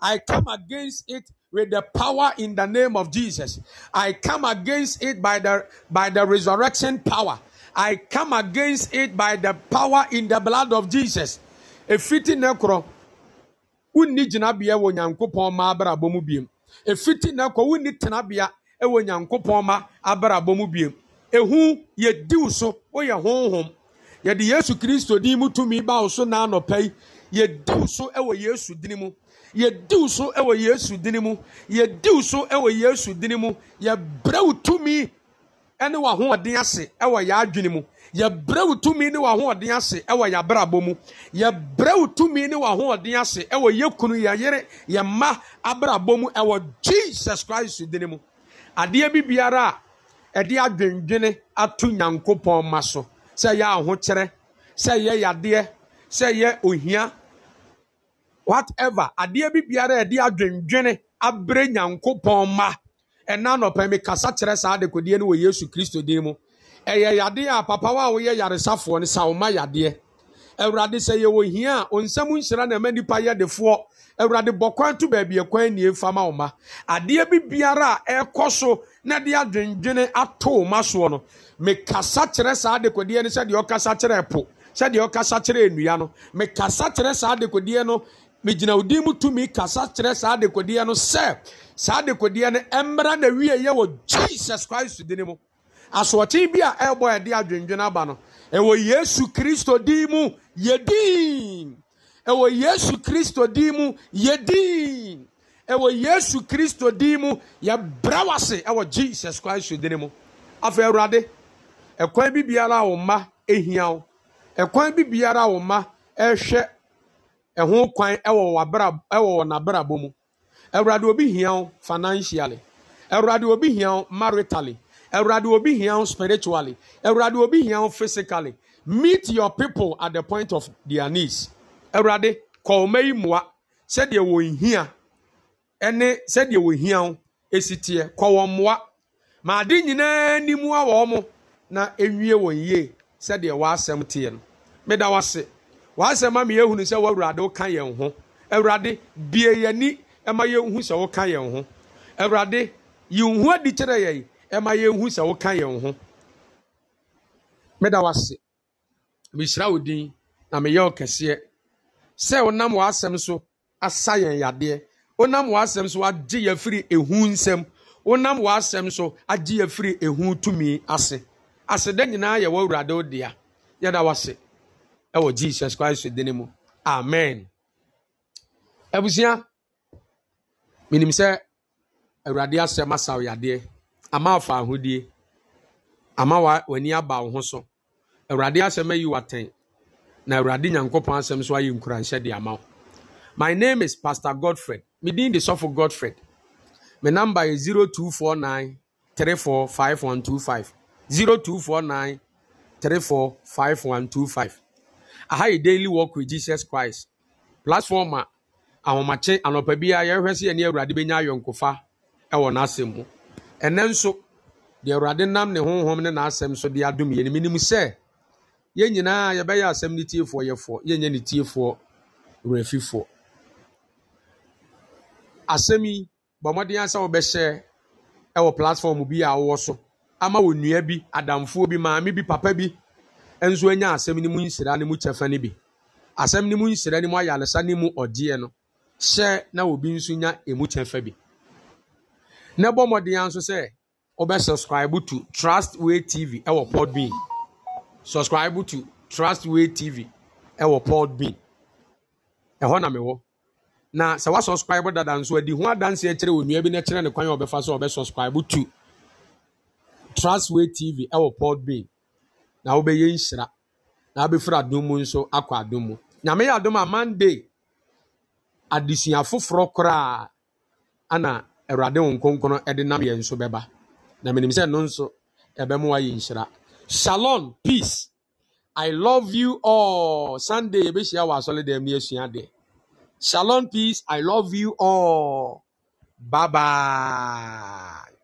i come against it with the power in the name of Jesus. I come against it by the, by the resurrection power. I come against it by the power in the blood of Jesus. Efiti nekro, wunni jinabia wo nyankopon ma abrabɔ mu biem. Efiti nekro, wunni tenabia ɛwɔ nyankopon ma abrabɔ mu biem. Ehu ye diu so, woyɛ honhom. Yɛde Yesu Kristo din mu tumi ba wo so na anɔpɛ Ye yɛ diw so ɛwɔ Yesu din mu. yɛdiw so wɔ yesu dini mu yɛdiw so wɔ yesu dini mu yɛbrɛw tumi ne w'ahoɔden ase wɔ yɛ adwene mu yɛbrɛw tumi ne w'ahoɔden ase wɔ yɛ abrabɔ mu yɛbrɛw tumi ne w'ahoɔden ase wɔ yɛ kunu yɛ yere yɛ mma abrabɔ mu wɔ jesus christ dini mu adeɛ bi biara a ɛde adwendwene ato nyankopɔn ma so sɛ yɛ ahokyerɛ sɛ yɛ yadeɛ sɛ yɛ ohia whatever adeɛ bi biara a yɛde adwendwene abere nyankopɔn ma ɛna nɔpɛ mi kasa kyerɛ saa adekodeɛ no wɔ yesu kristo din mu ɛyɛ yadeɛ a papa wa a woyɛ yaresafoɔ no sawoma yadeɛ awurade sɛ yɛwɔ hia a onsɛm nhyira na ɛma nipa yɛ defoɔ awurade bɔ kwan to baabi ɛkwan nie fama wo ma adeɛ bi biara a ɛrekɔ so na de adwendwene ato wo ma soɔ no mekasa kyerɛ saa adekodeɛ no sɛdeɛ ɔkasa kyerɛ ɛpo sɛdeɛ ɔkasa kyerɛ nnua no mekasa kyerɛ saa adekodeɛ no megyina wo din mu tumi kasa kyerɛ saa adekodeɛ no sɛ saa adekodeɛ no mmra na wie yɛ wɔ jesus christ din mu asoɔkye bi a ɛbɔ ɛde adwendwen aba no ɛwɔ yesu kristo din mu yɛdin ɛwɔ yesu kristo din mu yɛdin ɛwɔ yesu kristo din mu yɛbrɛ wase ɛwɔ jesus christ din mu afei awurade ɛkwan bi biara a wo mma ehia wo ɛkwan bi biara a wo mma ɛhwɛ ɛho kwan ɛwɔ n'abrabɔ mu ɛwurade obi hia wo financially ɛwurade obi hia wo maritally ɛwurade obi hia wo spiritually ɛwurade obi hia wo physically meet your people at the point of their needs ɛwurade kɔɔma yi mmoa sɛdeɛ wɔn hia ɛne sɛdeɛ wɔn hia wo esi teɛ kɔ wɔn mmoa ma ade nyinaa nimu a wɔn na ewie wɔn yie sɛdeɛ wɔn asɛm teɛ no meda wɔ ase. w'asɛm ama yɛhunu sɛ w'awurade woka yɛn ho awurade bie yɛni ɛma yɛnhu sɛ woka yɛn ho awurade yɛn ho adi kyerɛ yɛn ɛma yɛnhu sɛ woka yɛn ho meda w'ase mehyira wo din na meyɛ wo kɛseɛ sɛ wonam w'asɛm so asa yɛn yadeɛ wonam w'asɛm so agye yɛ firi ehu nsɛm wonam w'asɛm so agye yɛ firi ehu tumi ase aseda nyinaa yɛ w'awurade wo dea yɛda w'ase ɛwɔ jesus christ dini mu amen abusua menim sɛ awurade asɛm asaw yadeɛ ama afa ahodie ama w'ani aba wo ho so awurade asɛm ayi watɛn na awurade nyankopɔn asɛm so ayɛ nkuranhyɛ de ama wo my name is pastor godfred Me medin de sɔfo godfred me number yɛ five one two five. aha yi daily walk with jesus christ platform a ahomakye anɔpa bi a yɛhwɛ sɛ yɛne awurade bɛnya ayɔnkofa ɛwɔ n'asɛm mu ɛnɛ nso deɛ awurade nam ne honhom ne n'asɛm so de adom yɛ nim nim sɛ yɛn nyinaa yɛbɛyɛ asɛm ne tiefoɔ yɛfoɔ yɛnyɛ ne tiefoɔ wurafifoɔ asɛm yi bɔ mmɔden asɛ wobɛhyɛ ɛwɔ platform bi a ɔwɔ so ama wɔ nnua bi adamfoɔ bi maame bi papa bi nso anya asɛm no mu nhyira no mu kyɛfa no bi asɛm no mu nhyira no mu ayaresa no mu ɔgyeɛ no hyɛ na obi nso nya emu kyɛfa bi na bɔ mmɔden nso sɛ wɔbɛ subscribe to trustway tv ɛwɔ podbean subscribe to trustway tv ɛwɔ podbean ɛhɔ na mewɔ na sɛ wa subscribe dada nso adi ho adanseɛ kyerɛ onua bi na kyerɛ ne kwan a ɔbɛfa so ɔbɛ subscribe to trustway tv ɛwɔ podbean na wobɛyɛ nhyira na wabɛfiri adom mu nso akɔ adom mu nyame yɛ adom a monday adesua foforɔ koraa ana awurade wo nkonkron de nam yɛn nso bɛba na menim sɛ no nso ɛbɛmo wayɛ nhyira shalom peace i love you all sunday yɛbɛhyia wɔ asɔledam ne asua deɛ shalom peace i love you all bye bye